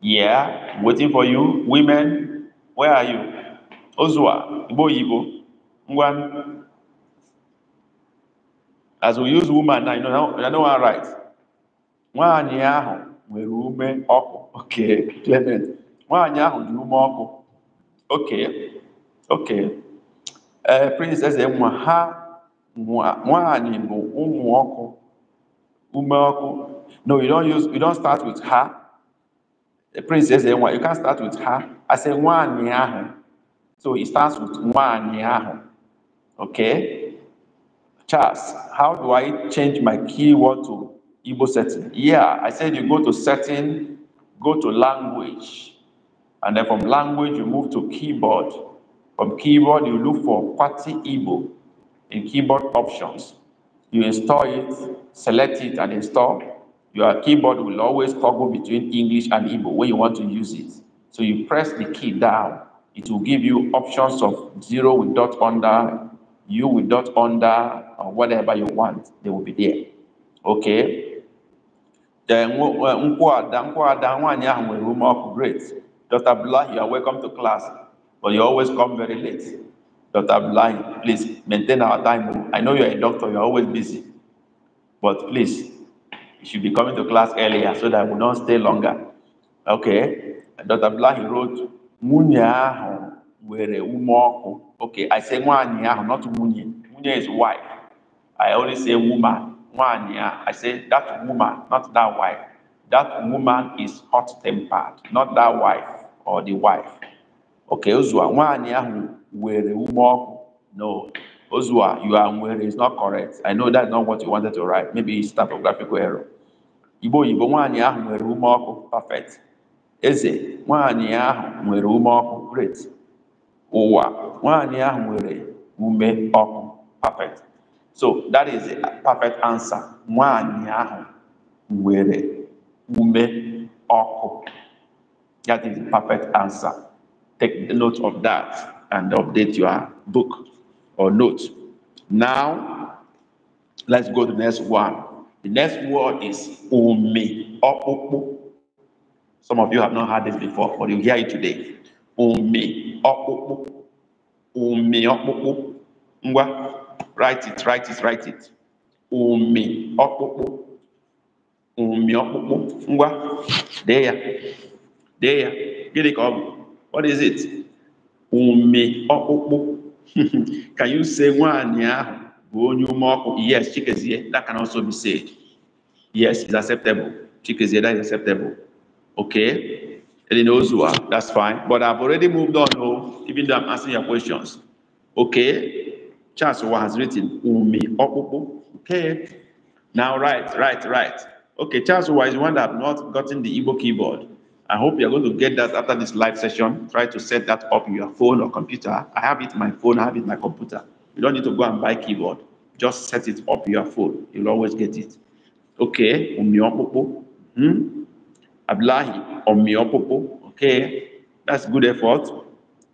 Yeah, I'm waiting for you. Women, where are you? Ozua, Igbo Igbo. One. As we use woman now, you know, I know I'm right. nwaanyị ahụ nwere ume ọkụ oke Clement nwaanyị ahụ dị ume ọkụ oke oke ee princess nwa ha nwaanyị bụ ụmụ ọkụ ume ọkụ no you don't use you don't start with ha princess nwa you can start with ha I say nwaanyị ahụ so it starts with nwaanyị ahụ okay Charles how do I change my keyword to Igbo setting. Yeah, I said you go to setting, go to language. And then from language, you move to keyboard. From keyboard, you look for Party Igbo in keyboard options. You install it, select it, and install. Your keyboard will always toggle between English and Igbo when you want to use it. So you press the key down. It will give you options of zero with dot under, you with dot under, or whatever you want. They will be there. Okay. Nkwada, Nkwada, nwaanyị ahụ nwere ume ọkụ great. Dr. Blah, you are welcome to class, but you always come very late. Dr. Blah, please maintain our time. I know you're a doctor, you're always busy, but please, you should be coming to class earlier so that we don't stay longer. Okay. Dr. he wrote, "Munya were nwere Okay, I say nwaanyị ahụ, not munya. Munya is wife. I only say woman one year, I say that woman, not that wife. That woman is hot tempered, not that wife or the wife. Okay, Uzua, one year who were No, Uzua, you are where is not correct. I know that's not what you wanted to write. Maybe it's typographical error. Ibo ibo nwaanyị ahụ nwere ume ọkụ perfect. Eze nwaanyị ahụ where ume ọkụ great. Owa nwaanyị ahụ nwere ume ọkụ perfect. so that is a perfect answer ume that is the perfect answer take note of that and update your book or note now let's go to the next one the next word is Ume some of you have not heard this before but you hear it today Ume ọkpụkpụ write it write it write it ụmị ọkpụkpụ ụmị ọkpụkpụ ngwa dee ya dee ya gịnị ka ọ bụ what is it ụmị ọkpụkpụ ka <laughs> you say nwaanyị ahụ bụ onye ume ọkụ yes chikezie that can also be said yes is acceptable chikezie that is acceptable okay and in Ozua, that's fine but I've already moved on oh even though I'm asking your questions okay Charles has written umi okupu. Okay. Now right, right, right. Okay, Charles is one that have not gotten the Igbo keyboard. I hope you're going to get that after this live session. Try to set that up in your phone or computer. I have it in my phone, I have it in my computer. You don't need to go and buy keyboard. Just set it up your phone. You'll always get it. Okay, umiopopo. Hmm? Ablahi, umiopopo. Okay, that's good effort.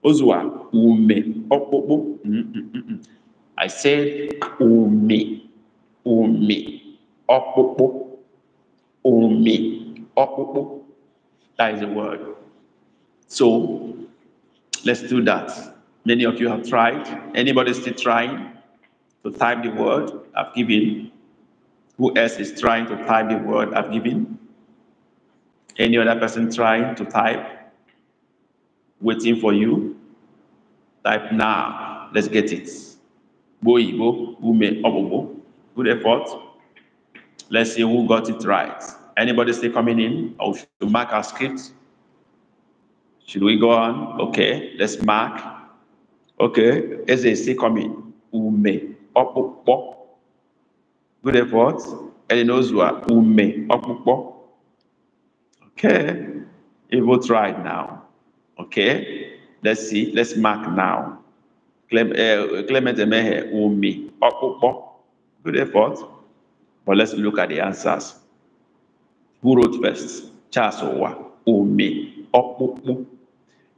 Ozuwa ume, opopo. I said umi, umi, okpukpu, umi, okpukpu. That is the word. So let's do that. Many of you have tried. Anybody still trying to type the word I've given? Who else is trying to type the word I've given? Any other person trying to type? Waiting for you? Type now. Let's get it. Bo Ume Obobo. Good effort. Let's see who got it right. Anybody still coming in? Or oh, should we mark our script? Should we go on? Okay, let's mark. Okay, is it still coming? Ume Obobo. Good effort. Elinozua Ume Obobo. Okay, it will try now. Okay, let's see. Let's mark now. Eh, Clement Emehe Umi Okpo. Good effort. But let's look at the answers. Who wrote first? Charles Owa Umi Okpo.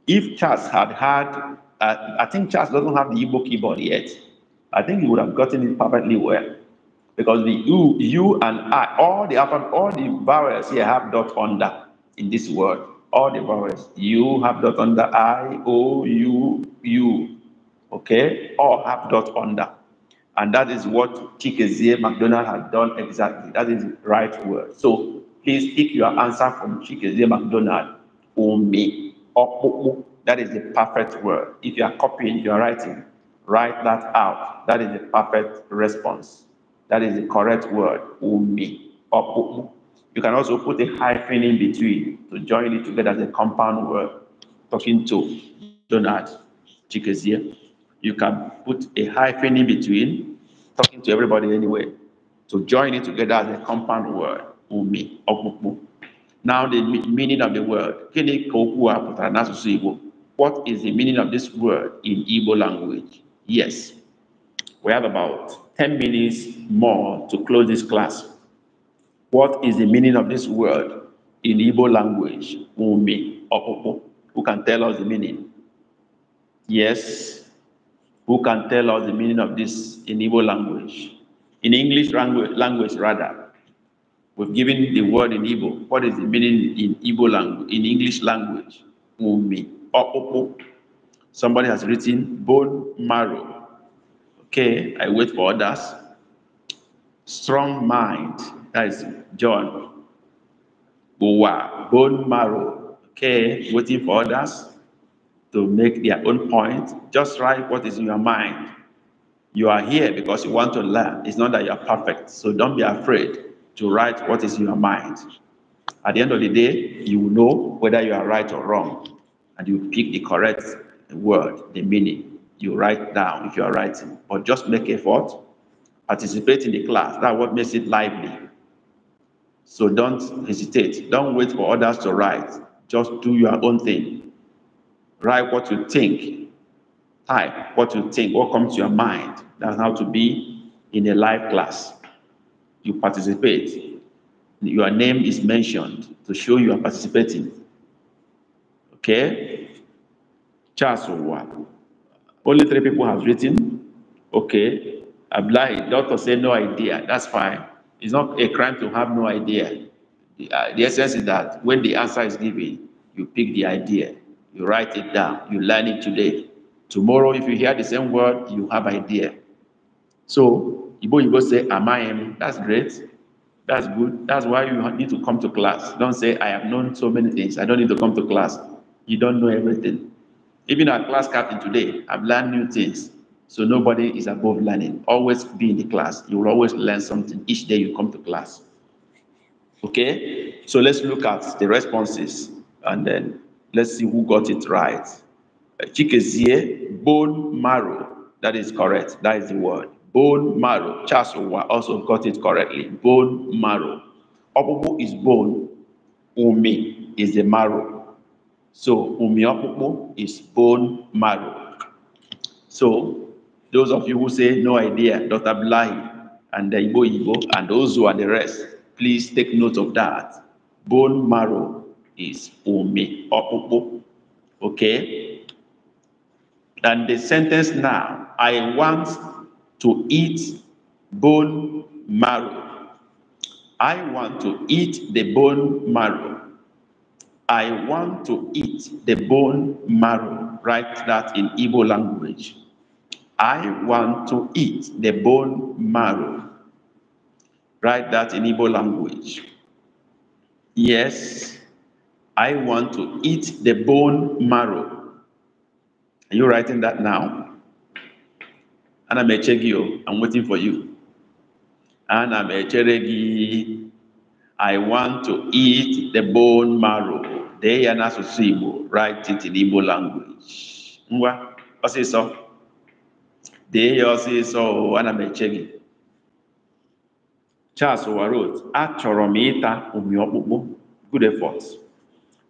If Charles had had, uh, I think Charles doesn't have the Igbo keyboard yet. I think he would have gotten it perfectly well. Because the U, U and I, all the upper, all the vowels here have dot under in this word. All the vowels. U have dot under I, O, U, U okay, or have dot under. And that is what Chikezie McDonald had done exactly. That is the right word. So please pick your answer from Chikezie McDonald, Umi or That is the perfect word. If you are copying, you are writing, write that out. That is the perfect response. That is the correct word, Umi or You can also put a hyphen in between to join it together as a compound word, talking to Donald Chikezie. You can put a hyphen in between, talking to everybody anyway. to join it together as a compound word, umi, Now the meaning of the word, What is the meaning of this word in Igbo language? Yes, we have about 10 minutes more to close this class. What is the meaning of this word in Igbo language? Umi, Who can tell us the meaning? Yes. Who can tell us the meaning of this in Igbo language? In English language, language rather. We've given the word in Igbo. What is the meaning in Igbo language, in English language? Umi. Somebody has written bone marrow. Okay, I wait for others. Strong mind. That is John. bone marrow. Okay, waiting for others to make their own point. Just write what is in your mind. You are here because you want to learn. It's not that you are perfect. So don't be afraid to write what is in your mind. At the end of the day, you will know whether you are right or wrong. And you pick the correct word, the meaning. You write down if you are writing. But just make effort. Participate in the class. That's what makes it lively. So don't hesitate. Don't wait for others to write. Just do your own thing. Write what you think. Type what you think, what comes to your mind. That's how to be in a live class. You participate. Your name is mentioned to show you are participating. Okay? Charles one. Only three people have written. Okay. Abdullah, doctor say no idea. That's fine. It's not a crime to have no idea. The, uh, the essence is that when the answer is given, you pick the idea. You write it down. You learn it today. Tomorrow, if you hear the same word, you have idea. So, you go say, am That's great. That's good. That's why you need to come to class. Don't say, I have known so many things. I don't need to come to class. You don't know everything. Even our class captain today, I've learned new things. So nobody is above learning. Always be in the class. You will always learn something each day you come to class. Okay? So let's look at the responses and then Let's see who got it right. Chikezie, bone marrow. That is correct. That is the word. Bone marrow. Charles also got it correctly. Bone marrow. Opopo is bone. Umi is the marrow. So umi opopo is bone marrow. So those of you who say no idea, Dr. Blahi and the Ibo, Ibo, and who are the rest, please take note of that. Bone marrow is umi, okpukpu. Okay? And the sentence now, I want to eat bone marrow. I want to eat the bone marrow. I want to eat the bone marrow. Write that in Igbo language. I want to eat the bone marrow. Write that in Igbo language. Yes. I want to eat the bone marrow. Are you writing that now? and I m eche gị i I'm waiting for you. And I'm a cheregi. I want to eat the bone marrow. They are not Igbo. Write it in Igbo language. Ngwa, ọsịsọ. Dee ya ọsịsọ o. Ana m eche gị. Charles Warrote, achọrọ m ịta ụmị ọkpụkpụ. Good efforts.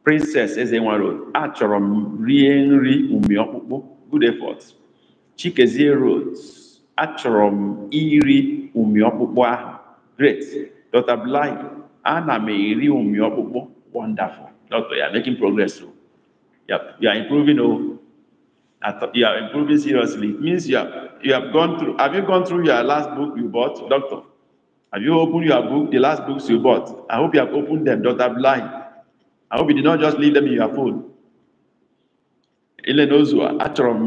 princess eze nwaroad achọrọ m rie nri umi ọkpụkpụ good effort chikezie road achọrọ m iri umi ọkpụkpụ ahụ great dr bly ana m eri umi ọkpụkpụ wonderful doctor you are making progress o oh. you are, you are improving o oh. you are improving seriously it means you have you have gone through have you gone through your last book you bought doctor have you opened your book the last books you bought i hope you have opened them dr bly I hope you did not just leave them in your food. Ele n'ozu achọrọ m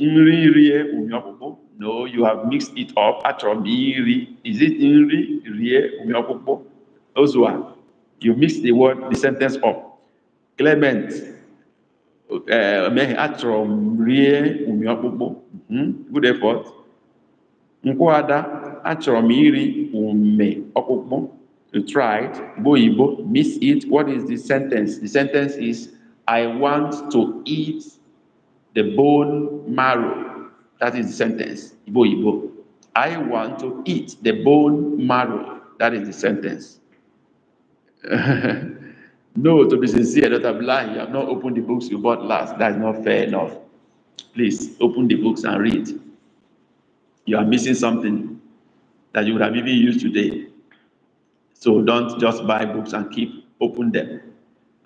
nri rie ume ọkpụkpụ. No, you have mixed it up. Achọrọ m iri. Is it nri rie ume ọkpụkpụ? Ozuwa, you mixed the word, the sentence up. Clement, emeghe eh, achọrọ m rie ume ọkpụkpụ. Hmm? Good effort. Nkwuada, achọrọ m iri ume ọkpụkpụ. You tried, boibo, miss it. What is the sentence? The sentence is, I want to eat the bone marrow. That is the sentence, boibo. I want to eat the bone marrow. That is the sentence. <laughs> no, to be sincere, not I'm lying. You have not opened the books you bought last. That is not fair enough. Please open the books and read. You are missing something that you would have even used today. So don't just buy books and keep open them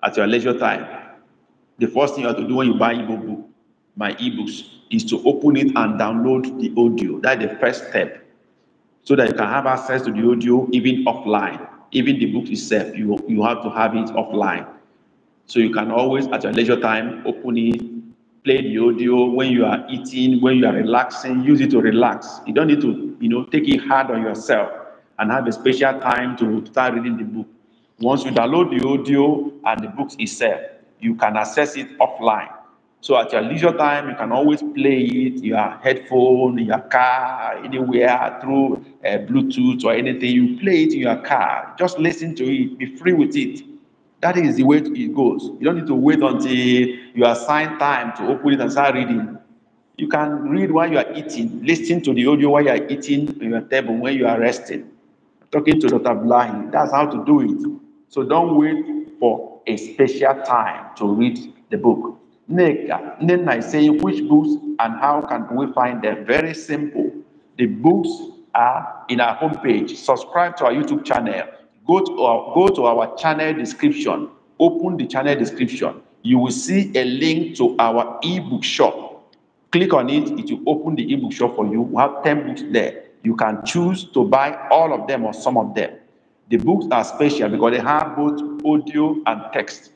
at your leisure time. The first thing you have to do when you buy e book, my ebooks, is to open it and download the audio. That's the first step. So that you can have access to the audio even offline. Even the book itself, you, you have to have it offline. So you can always, at your leisure time, open it, play the audio when you are eating, when you are relaxing, use it to relax. You don't need to, you know, take it hard on yourself and have a special time to start reading the book. Once you download the audio and the books itself, you can access it offline. So at your leisure time, you can always play it, your headphone, your car, anywhere, through uh, Bluetooth or anything. You play it in your car. Just listen to it. Be free with it. That is the way it goes. You don't need to wait until you assign time to open it and start reading. You can read while you are eating, listen to the audio while you are eating on your table when you are resting talking to Dr. Blahi. That's how to do it. So don't wait for a special time to read the book. Then I say which books and how can we find them? Very simple. The books are in our homepage. Subscribe to our YouTube channel. Go to our, go to our channel description. Open the channel description. You will see a link to our ebook shop. Click on it. It will open the ebook shop for you. We have 10 books there you can choose to buy all of them or some of them. The books are special because they have both audio and text,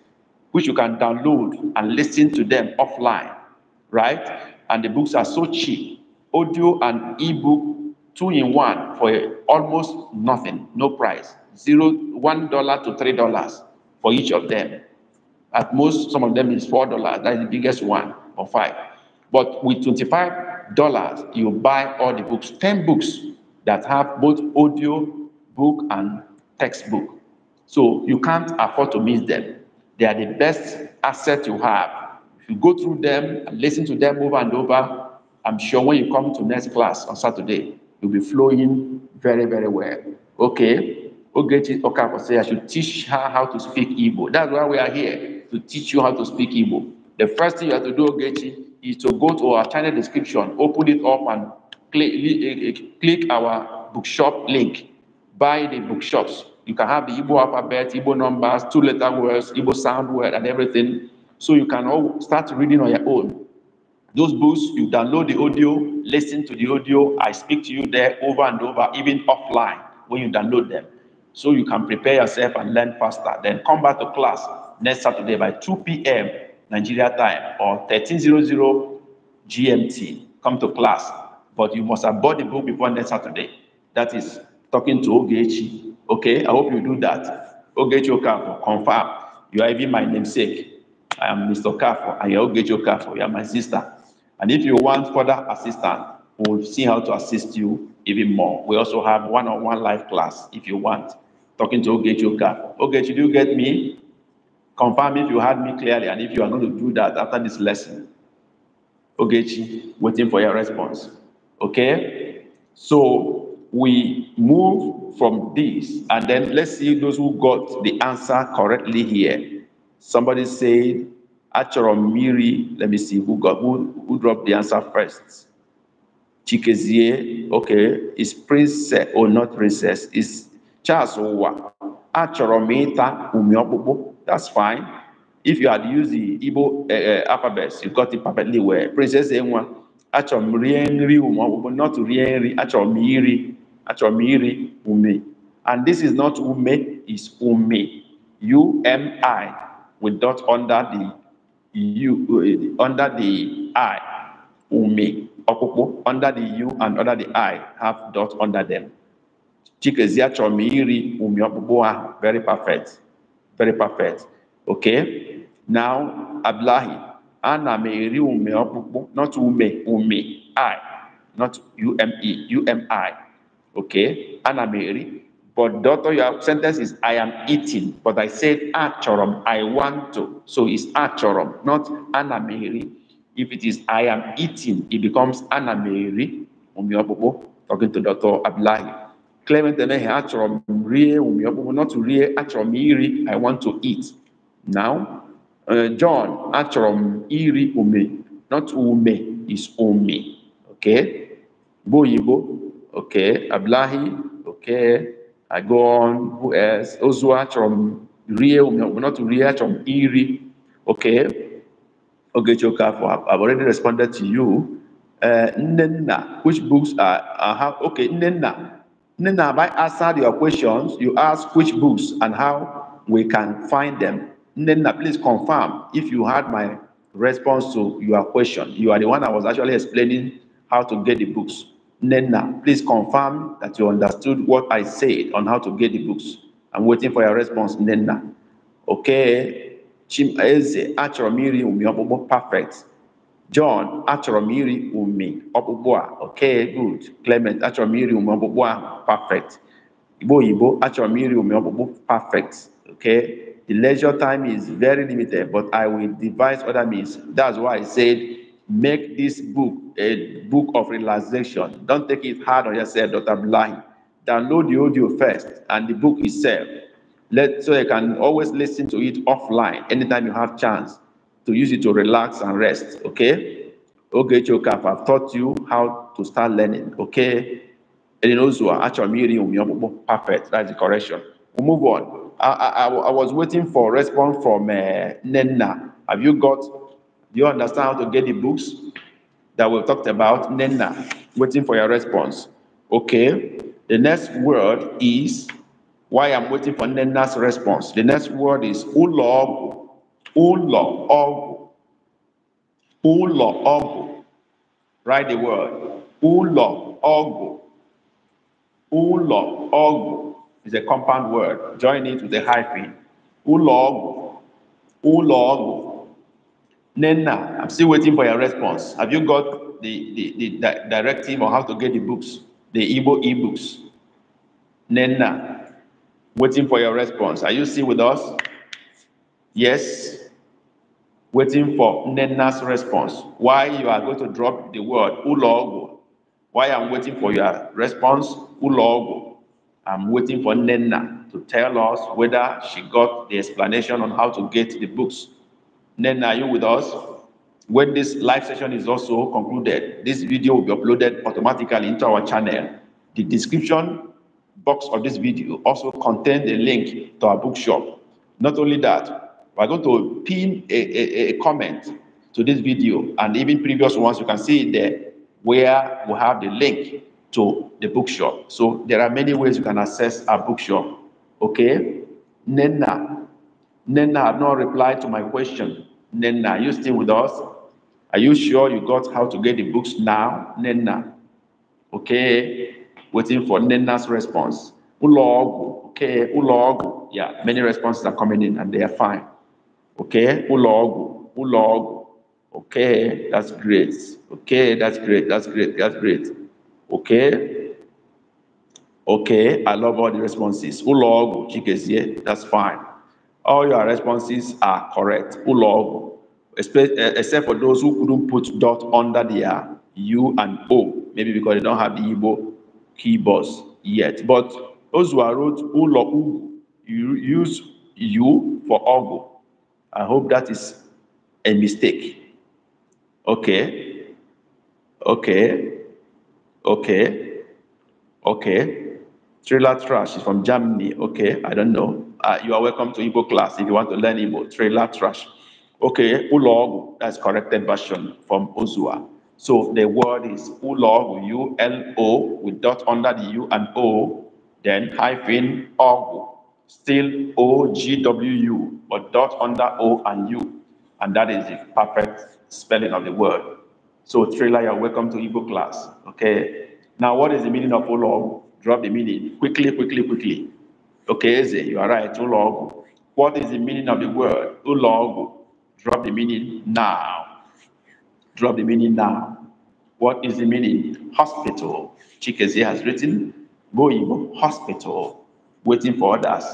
which you can download and listen to them offline, right? And the books are so cheap audio and ebook two in one for almost nothing, no price, zero, one dollar to three dollars for each of them. At most, some of them is four dollars. That's the biggest one or five. But with 25 dollars you buy all the books, 10 books that have both audio book and textbook. So you can't afford to miss them. They are the best asset you have. If you go through them and listen to them over and over, I'm sure when you come to next class on Saturday, you'll be flowing very, very well. Okay. Ogechi Okafor say I should teach her how to speak Igbo. That's why we are here, to teach you how to speak Igbo. The first thing you have to do, Ogechi, is to go to our channel description, open it up and click, click our bookshop link. Buy the bookshops. You can have the Igbo alphabet, Igbo numbers, two-letter words, Igbo sound word, and everything. So you can all start reading on your own. Those books, you download the audio, listen to the audio. I speak to you there over and over, even offline when you download them. So you can prepare yourself and learn faster. Then come back to class next Saturday by 2 p.m. Nigeria time or 1300 GMT. Come to class, but you must have bought the book before next Saturday. That is talking to Ogechi. Okay, I hope you do that. Ogechi Okafor, confirm. You are even my namesake. I am Mr. Okafor. I am Ogechi Okafor. You are my sister. And if you want further assistance, we'll see how to assist you even more. We also have one-on-one -on -one live class if you want. Talking to Ogechi Okafor. Ogechi, do you get me? Confirm if you heard me clearly and if you are going to do that after this lesson. Ogechi, waiting for your response. Okay? So we move from this and then let's see those who got the answer correctly here. Somebody said, Achorom Miri, let me see who got who, who dropped the answer first. Chikezie, okay, is princess or oh, not princess, is Charles Owa. Achorom Ita That's fine. If you had used the Igbo uh, uh, you got it perfectly well. Princess Enwa, Achomrienri Ume, not Rienri, Achomiri, Achomiri Ume. And this is not Ume, it's Ume. U-M-I, with dot under the U, uh, under the I, Ume. Okoko, under the U and under the I, have dot under them. Chikeziachomiri Ume Okoko, very perfect very perfect okay now abdullahi ana meri ume ọkpụkpụ not ume ume i not ume umi okay ana meri but daughter your sentence is i am eating but i said achorom i want to so it's achorom not ana meri if it is i am eating it becomes ana meri ume ọkpụkpụ talking to daughter abdullahi Clement not to iri, I want to eat. Now, uh, John, achọrọ iri ume, not ume, is ume. Okay? Boyibo, okay. Ablahi, okay. Agon, who else? Ozu, achọrọ m ume not to rie, achọrọ iri. Okay? Okay, Chokafo, I've already responded to you. Uh, Nenna, which books are, are okay, Nenna. Then have I answered your questions. You ask which books and how we can find them. Nina, please confirm if you had my response to your question. You are the one I was actually explaining how to get the books. Nena, please confirm that you understood what I said on how to get the books. I'm waiting for your response, Nena. Okay. Chim Eze, Achoromiri, Umiobobo, perfect. John achọrọmiri umi ọkpụkpụ a okay good Clement achọrọmiri umi ọkpụkpụ perfect Igbo you achọrọmiri umi ọkpụkpụ perfect okay the leisure time is very limited but I will devise other means that's why I said make this book a book of relaxation don't take it hard on yourself Dr. Blahi download the audio first and the book itself let so you can always listen to it offline anytime you have chance to use it to relax and rest, okay? Okay. Chokaf, I've taught you how to start learning, okay? And in Ozua, actually, perfect, that's the correction. we will move on. I, I, I was waiting for a response from uh, Nenna. Have you got, do you understand how to get the books that we talked about? Nenna, waiting for your response. Okay, the next word is, why I'm waiting for Nenna's response. The next word is Ulog ụlọ ọgwụ ụlọ ọgwụ write the word ụlọ ọgwụ ụlọ ọgwụ is a compound word join it with a hyphen ụlọ ọgwụ ụlọ ọgwụ nenna I'm still waiting for your response have you got the the the directive on how to get the books the Igbo ebooks Nenna, waiting for your response are you still with us yes waiting for Nena's response. Why you are going to drop the word ulogo? Why I'm waiting for your response ulogo? I'm waiting for Nena to tell us whether she got the explanation on how to get the books. Nena, are you with us? When this live session is also concluded, this video will be uploaded automatically into our channel. The description box of this video also contains a link to our bookshop. Not only that, we're going to pin a, a, a comment to this video and even previous ones. You can see there where we have the link to the bookshop. So there are many ways you can access our bookshop. Okay? Nena. Nena have not replied to my question. Nena, are you still with us? Are you sure you got how to get the books now? Nena. Okay? Waiting for Nena's response. Ulog. Okay, Ulog. Yeah, many responses are coming in and they are fine. Okay, ulog, ulog. Okay, that's great. Okay, that's great. That's great. That's great. Okay. Okay, I love all the responses. Ulogu, chikezie, that's fine. All your responses are correct. Ulog, eh, except for those who couldn't put dot under their U and O, maybe because they don't have the Igbo keyboards yet. But those who are wrote ulog, you use U for ogu. I hope that is a mistake. Okay. Okay. Okay. Okay. Trailer Trash is from Germany. Okay. I don't know. Uh, you are welcome to Igbo class if you want to learn Igbo. Trailer Trash. Okay. Ulog, that's corrected version from Ozua. So the word is Ulog, U L O, with dot under the U and O, then hyphen Ogu still O G W U, but dot under O and U. And that is the perfect spelling of the word. So, Trailer, you're welcome to Igbo class. Okay. Now, what is the meaning of Olog? Drop the meaning quickly, quickly, quickly. Okay, Eze, you are right. Olog. What is the meaning of the word? Ulog. Drop the meaning now. Drop the meaning now. What is the meaning? Hospital. Chikeze has written, Goibo Hospital waiting for others,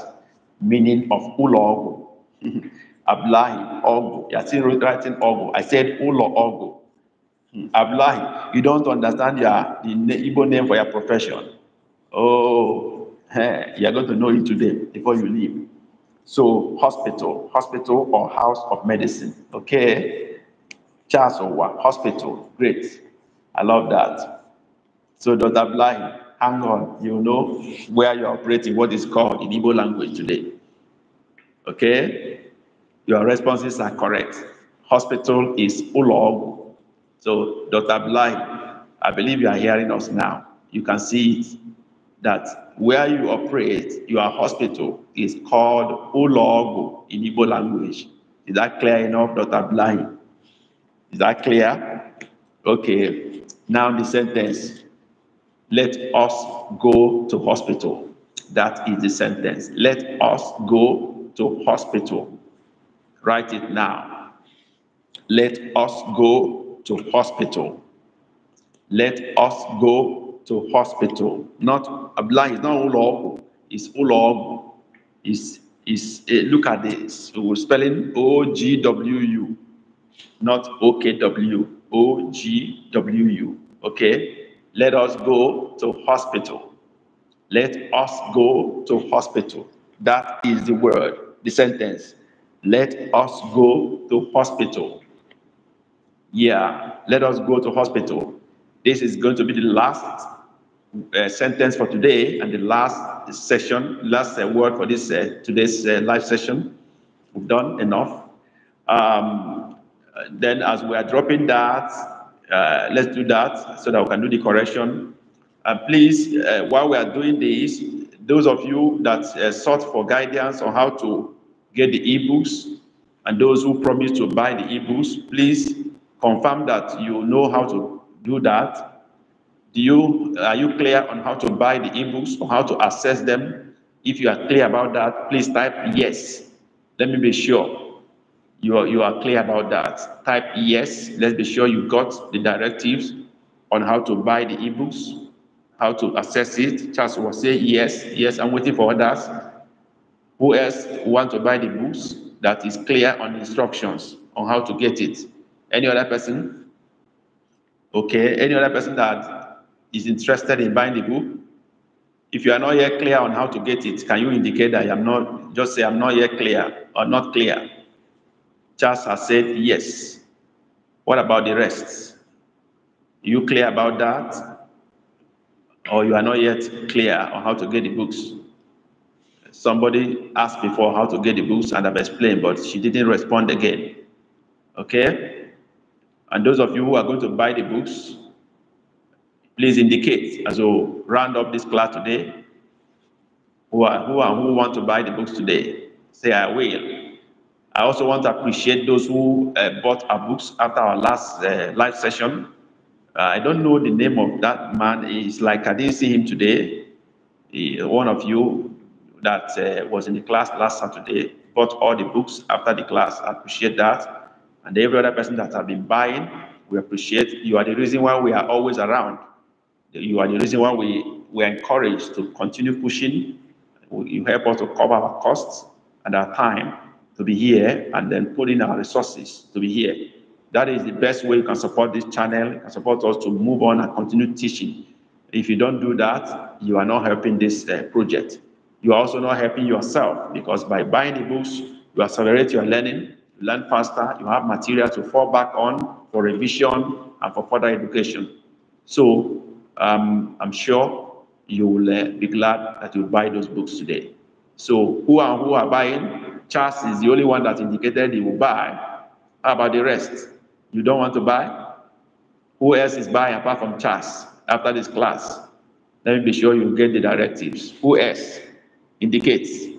meaning of Ulo Ogo. <laughs> Ablahi Ogo. You're still writing Ogo. I said Ulo Ogo. Hmm. Ablahi, you don't understand your the Igbo name for your profession. Oh, hey, you're going to know it today before you leave. So hospital, hospital or house of medicine. Okay. Charles Owa, hospital. Great. I love that. So Dr. Blahi, hang on, you know where you're operating, what is called in Igbo language today. Okay? Your responses are correct. Hospital is Ulog. So, Dr. Bly, I believe you are hearing us now. You can see that where you operate, your hospital is called Ulog in Igbo language. Is that clear enough, Dr. Bly? Is that clear? Okay. Now the sentence. Let us go to hospital. That is the sentence. Let us go to hospital. Write it now. Let us go to hospital. Let us go to hospital. Not Abdullah is not ulog, it's ulog. Is is uh, eh, look at this. We're spelling O G W U, not O K W. O G W U. Okay. Let us go to hospital. Let us go to hospital. That is the word, the sentence. Let us go to hospital. Yeah, let us go to hospital. This is going to be the last uh, sentence for today and the last session, last uh, word for this uh, today's uh, live session. We've done enough. Um, then as we are dropping that, uh, let's do that so that we can do the correction. And please, uh, while we are doing this, those of you that uh, sought for guidance on how to get the ebooks and those who promised to buy the ebooks, please confirm that you know how to do that. Do you are you clear on how to buy the ebooks or how to access them? If you are clear about that, please type yes. Let me be sure you are, you are clear about that. Type yes. Let's be sure you got the directives on how to buy the ebooks, how to access it. Charles will say yes, yes, I'm waiting for others. Who else want to buy the books that is clear on instructions on how to get it? Any other person? Okay, any other person that is interested in buying the book? If you are not yet clear on how to get it, can you indicate that I'm not, just say I'm not yet clear or not clear? Just has said yes. What about the rest? you clear about that? Or you are not yet clear on how to get the books? Somebody asked before how to get the books and I've explained, but she didn't respond again. Okay? And those of you who are going to buy the books, please indicate as we round up this class today who are who are who want to buy the books today. Say I will. I also want to appreciate those who uh, bought our books after our last uh, live session. Uh, I don't know the name of that man. It's like I didn't see him today. He, one of you that uh, was in the class last Saturday bought all the books after the class. I appreciate that. And every other person that has been buying, we appreciate. You are the reason why we are always around. You are the reason why we, we are encouraged to continue pushing. You help us to cover our costs and our time to be here and then putting our resources to be here. That is the best way you can support this channel, you can support us to move on and continue teaching. If you don't do that, you are not helping this uh, project. You are also not helping yourself because by buying the books, you accelerate your learning, you learn faster, you have material to fall back on for revision and for further education. So um, I'm sure you will uh, be glad that you buy those books today. So who are who are buying? Charles is the only one that indicated he will buy. How about the rest? You don't want to buy? Who else is buying apart from Charles after this class? Let me be sure you get the directives. Who else indicates?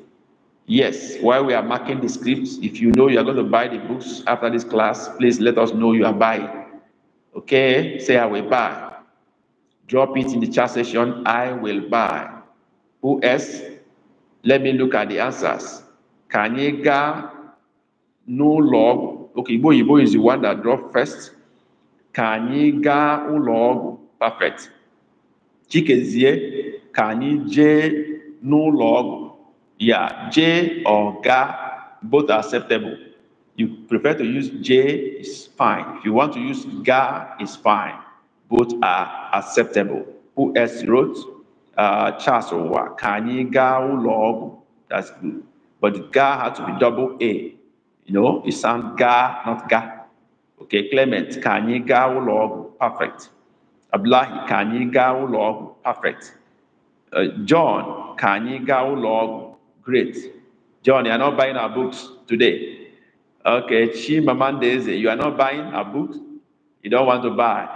Yes, while we are marking the scripts, if you know you are going to buy the books after this class, please let us know you are buying. Okay? Say, I will buy. Drop it in the chat session. I will buy. Who else? Let me look at the answers. ka anyị gaa n'ụlọ ọgwụ oke igbo is the one that drop first ka anyị log perfect chikezie ka anyị no log. ọgwụ j or ga both acceptable you prefer to use j is fine if you want to use ga is fine both are acceptable who else wrote uh, charles owa ka anyị gaa ụlọ ọgwụ that's good But the ga had to be double A. You know, it sounds ga, not ga. Okay, Clement, Can you ga ulog, perfect. Ablahi, you ga ulog, perfect. Uh, John, you ga ulog, great. John, you are not buying our books today. Okay, Chimamandeze, you are not buying our books. You don't want to buy.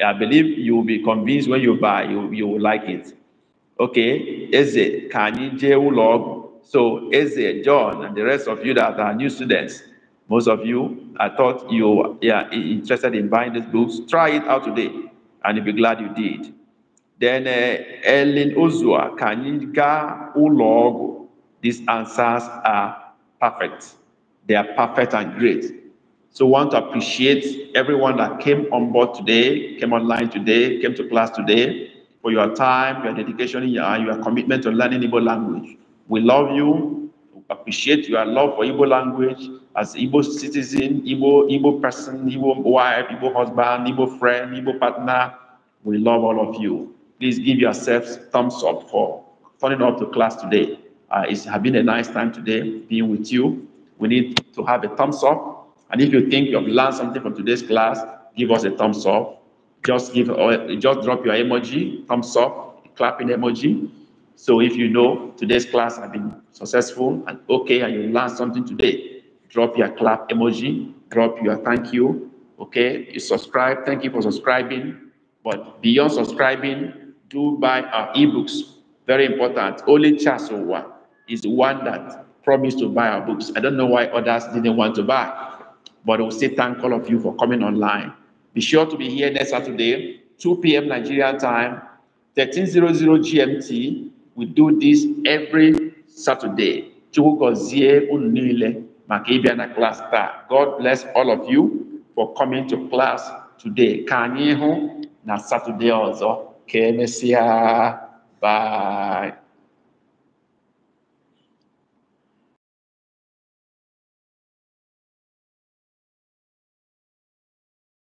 I believe you will be convinced when you buy, you, you will like it. Okay, Eze, you je ulog, so Eze, John, and the rest of you that are new students, most of you, I thought you are interested in buying these books. Try it out today, and you'll be glad you did. Then uh, Ellen Ozua, Kanyika Ulogo. These answers are perfect. They are perfect and great. So I want to appreciate everyone that came on board today, came online today, came to class today, for your time, your dedication, and your, your commitment to learning Igbo language. We love you. We appreciate your love for Igbo language as Igbo citizen, Igbo, Igbo person, Igbo wife, Igbo husband, Igbo friend, Igbo partner. We love all of you. Please give yourselves thumbs up for turning up to class today. Uh, it's been a nice time today being with you. We need to have a thumbs up. And if you think you've learned something from today's class, give us a thumbs up. Just give, or uh, just drop your emoji, thumbs up, clapping emoji. So if you know today's class has been successful and okay, and you learned something today, drop your clap emoji, drop your thank you. Okay, you subscribe. Thank you for subscribing. But beyond subscribing, do buy our ebooks. Very important. Only Chasowa is the one that promised to buy our books. I don't know why others didn't want to buy, but I will say thank all of you for coming online. Be sure to be here next Saturday, 2 p.m. Nigerian time, 1300 GMT, we do this every Saturday. Chugozie Unile Makibiana class star. God bless all of you for coming to class today. Kanyehu na Saturday also. Kemesia. Bye.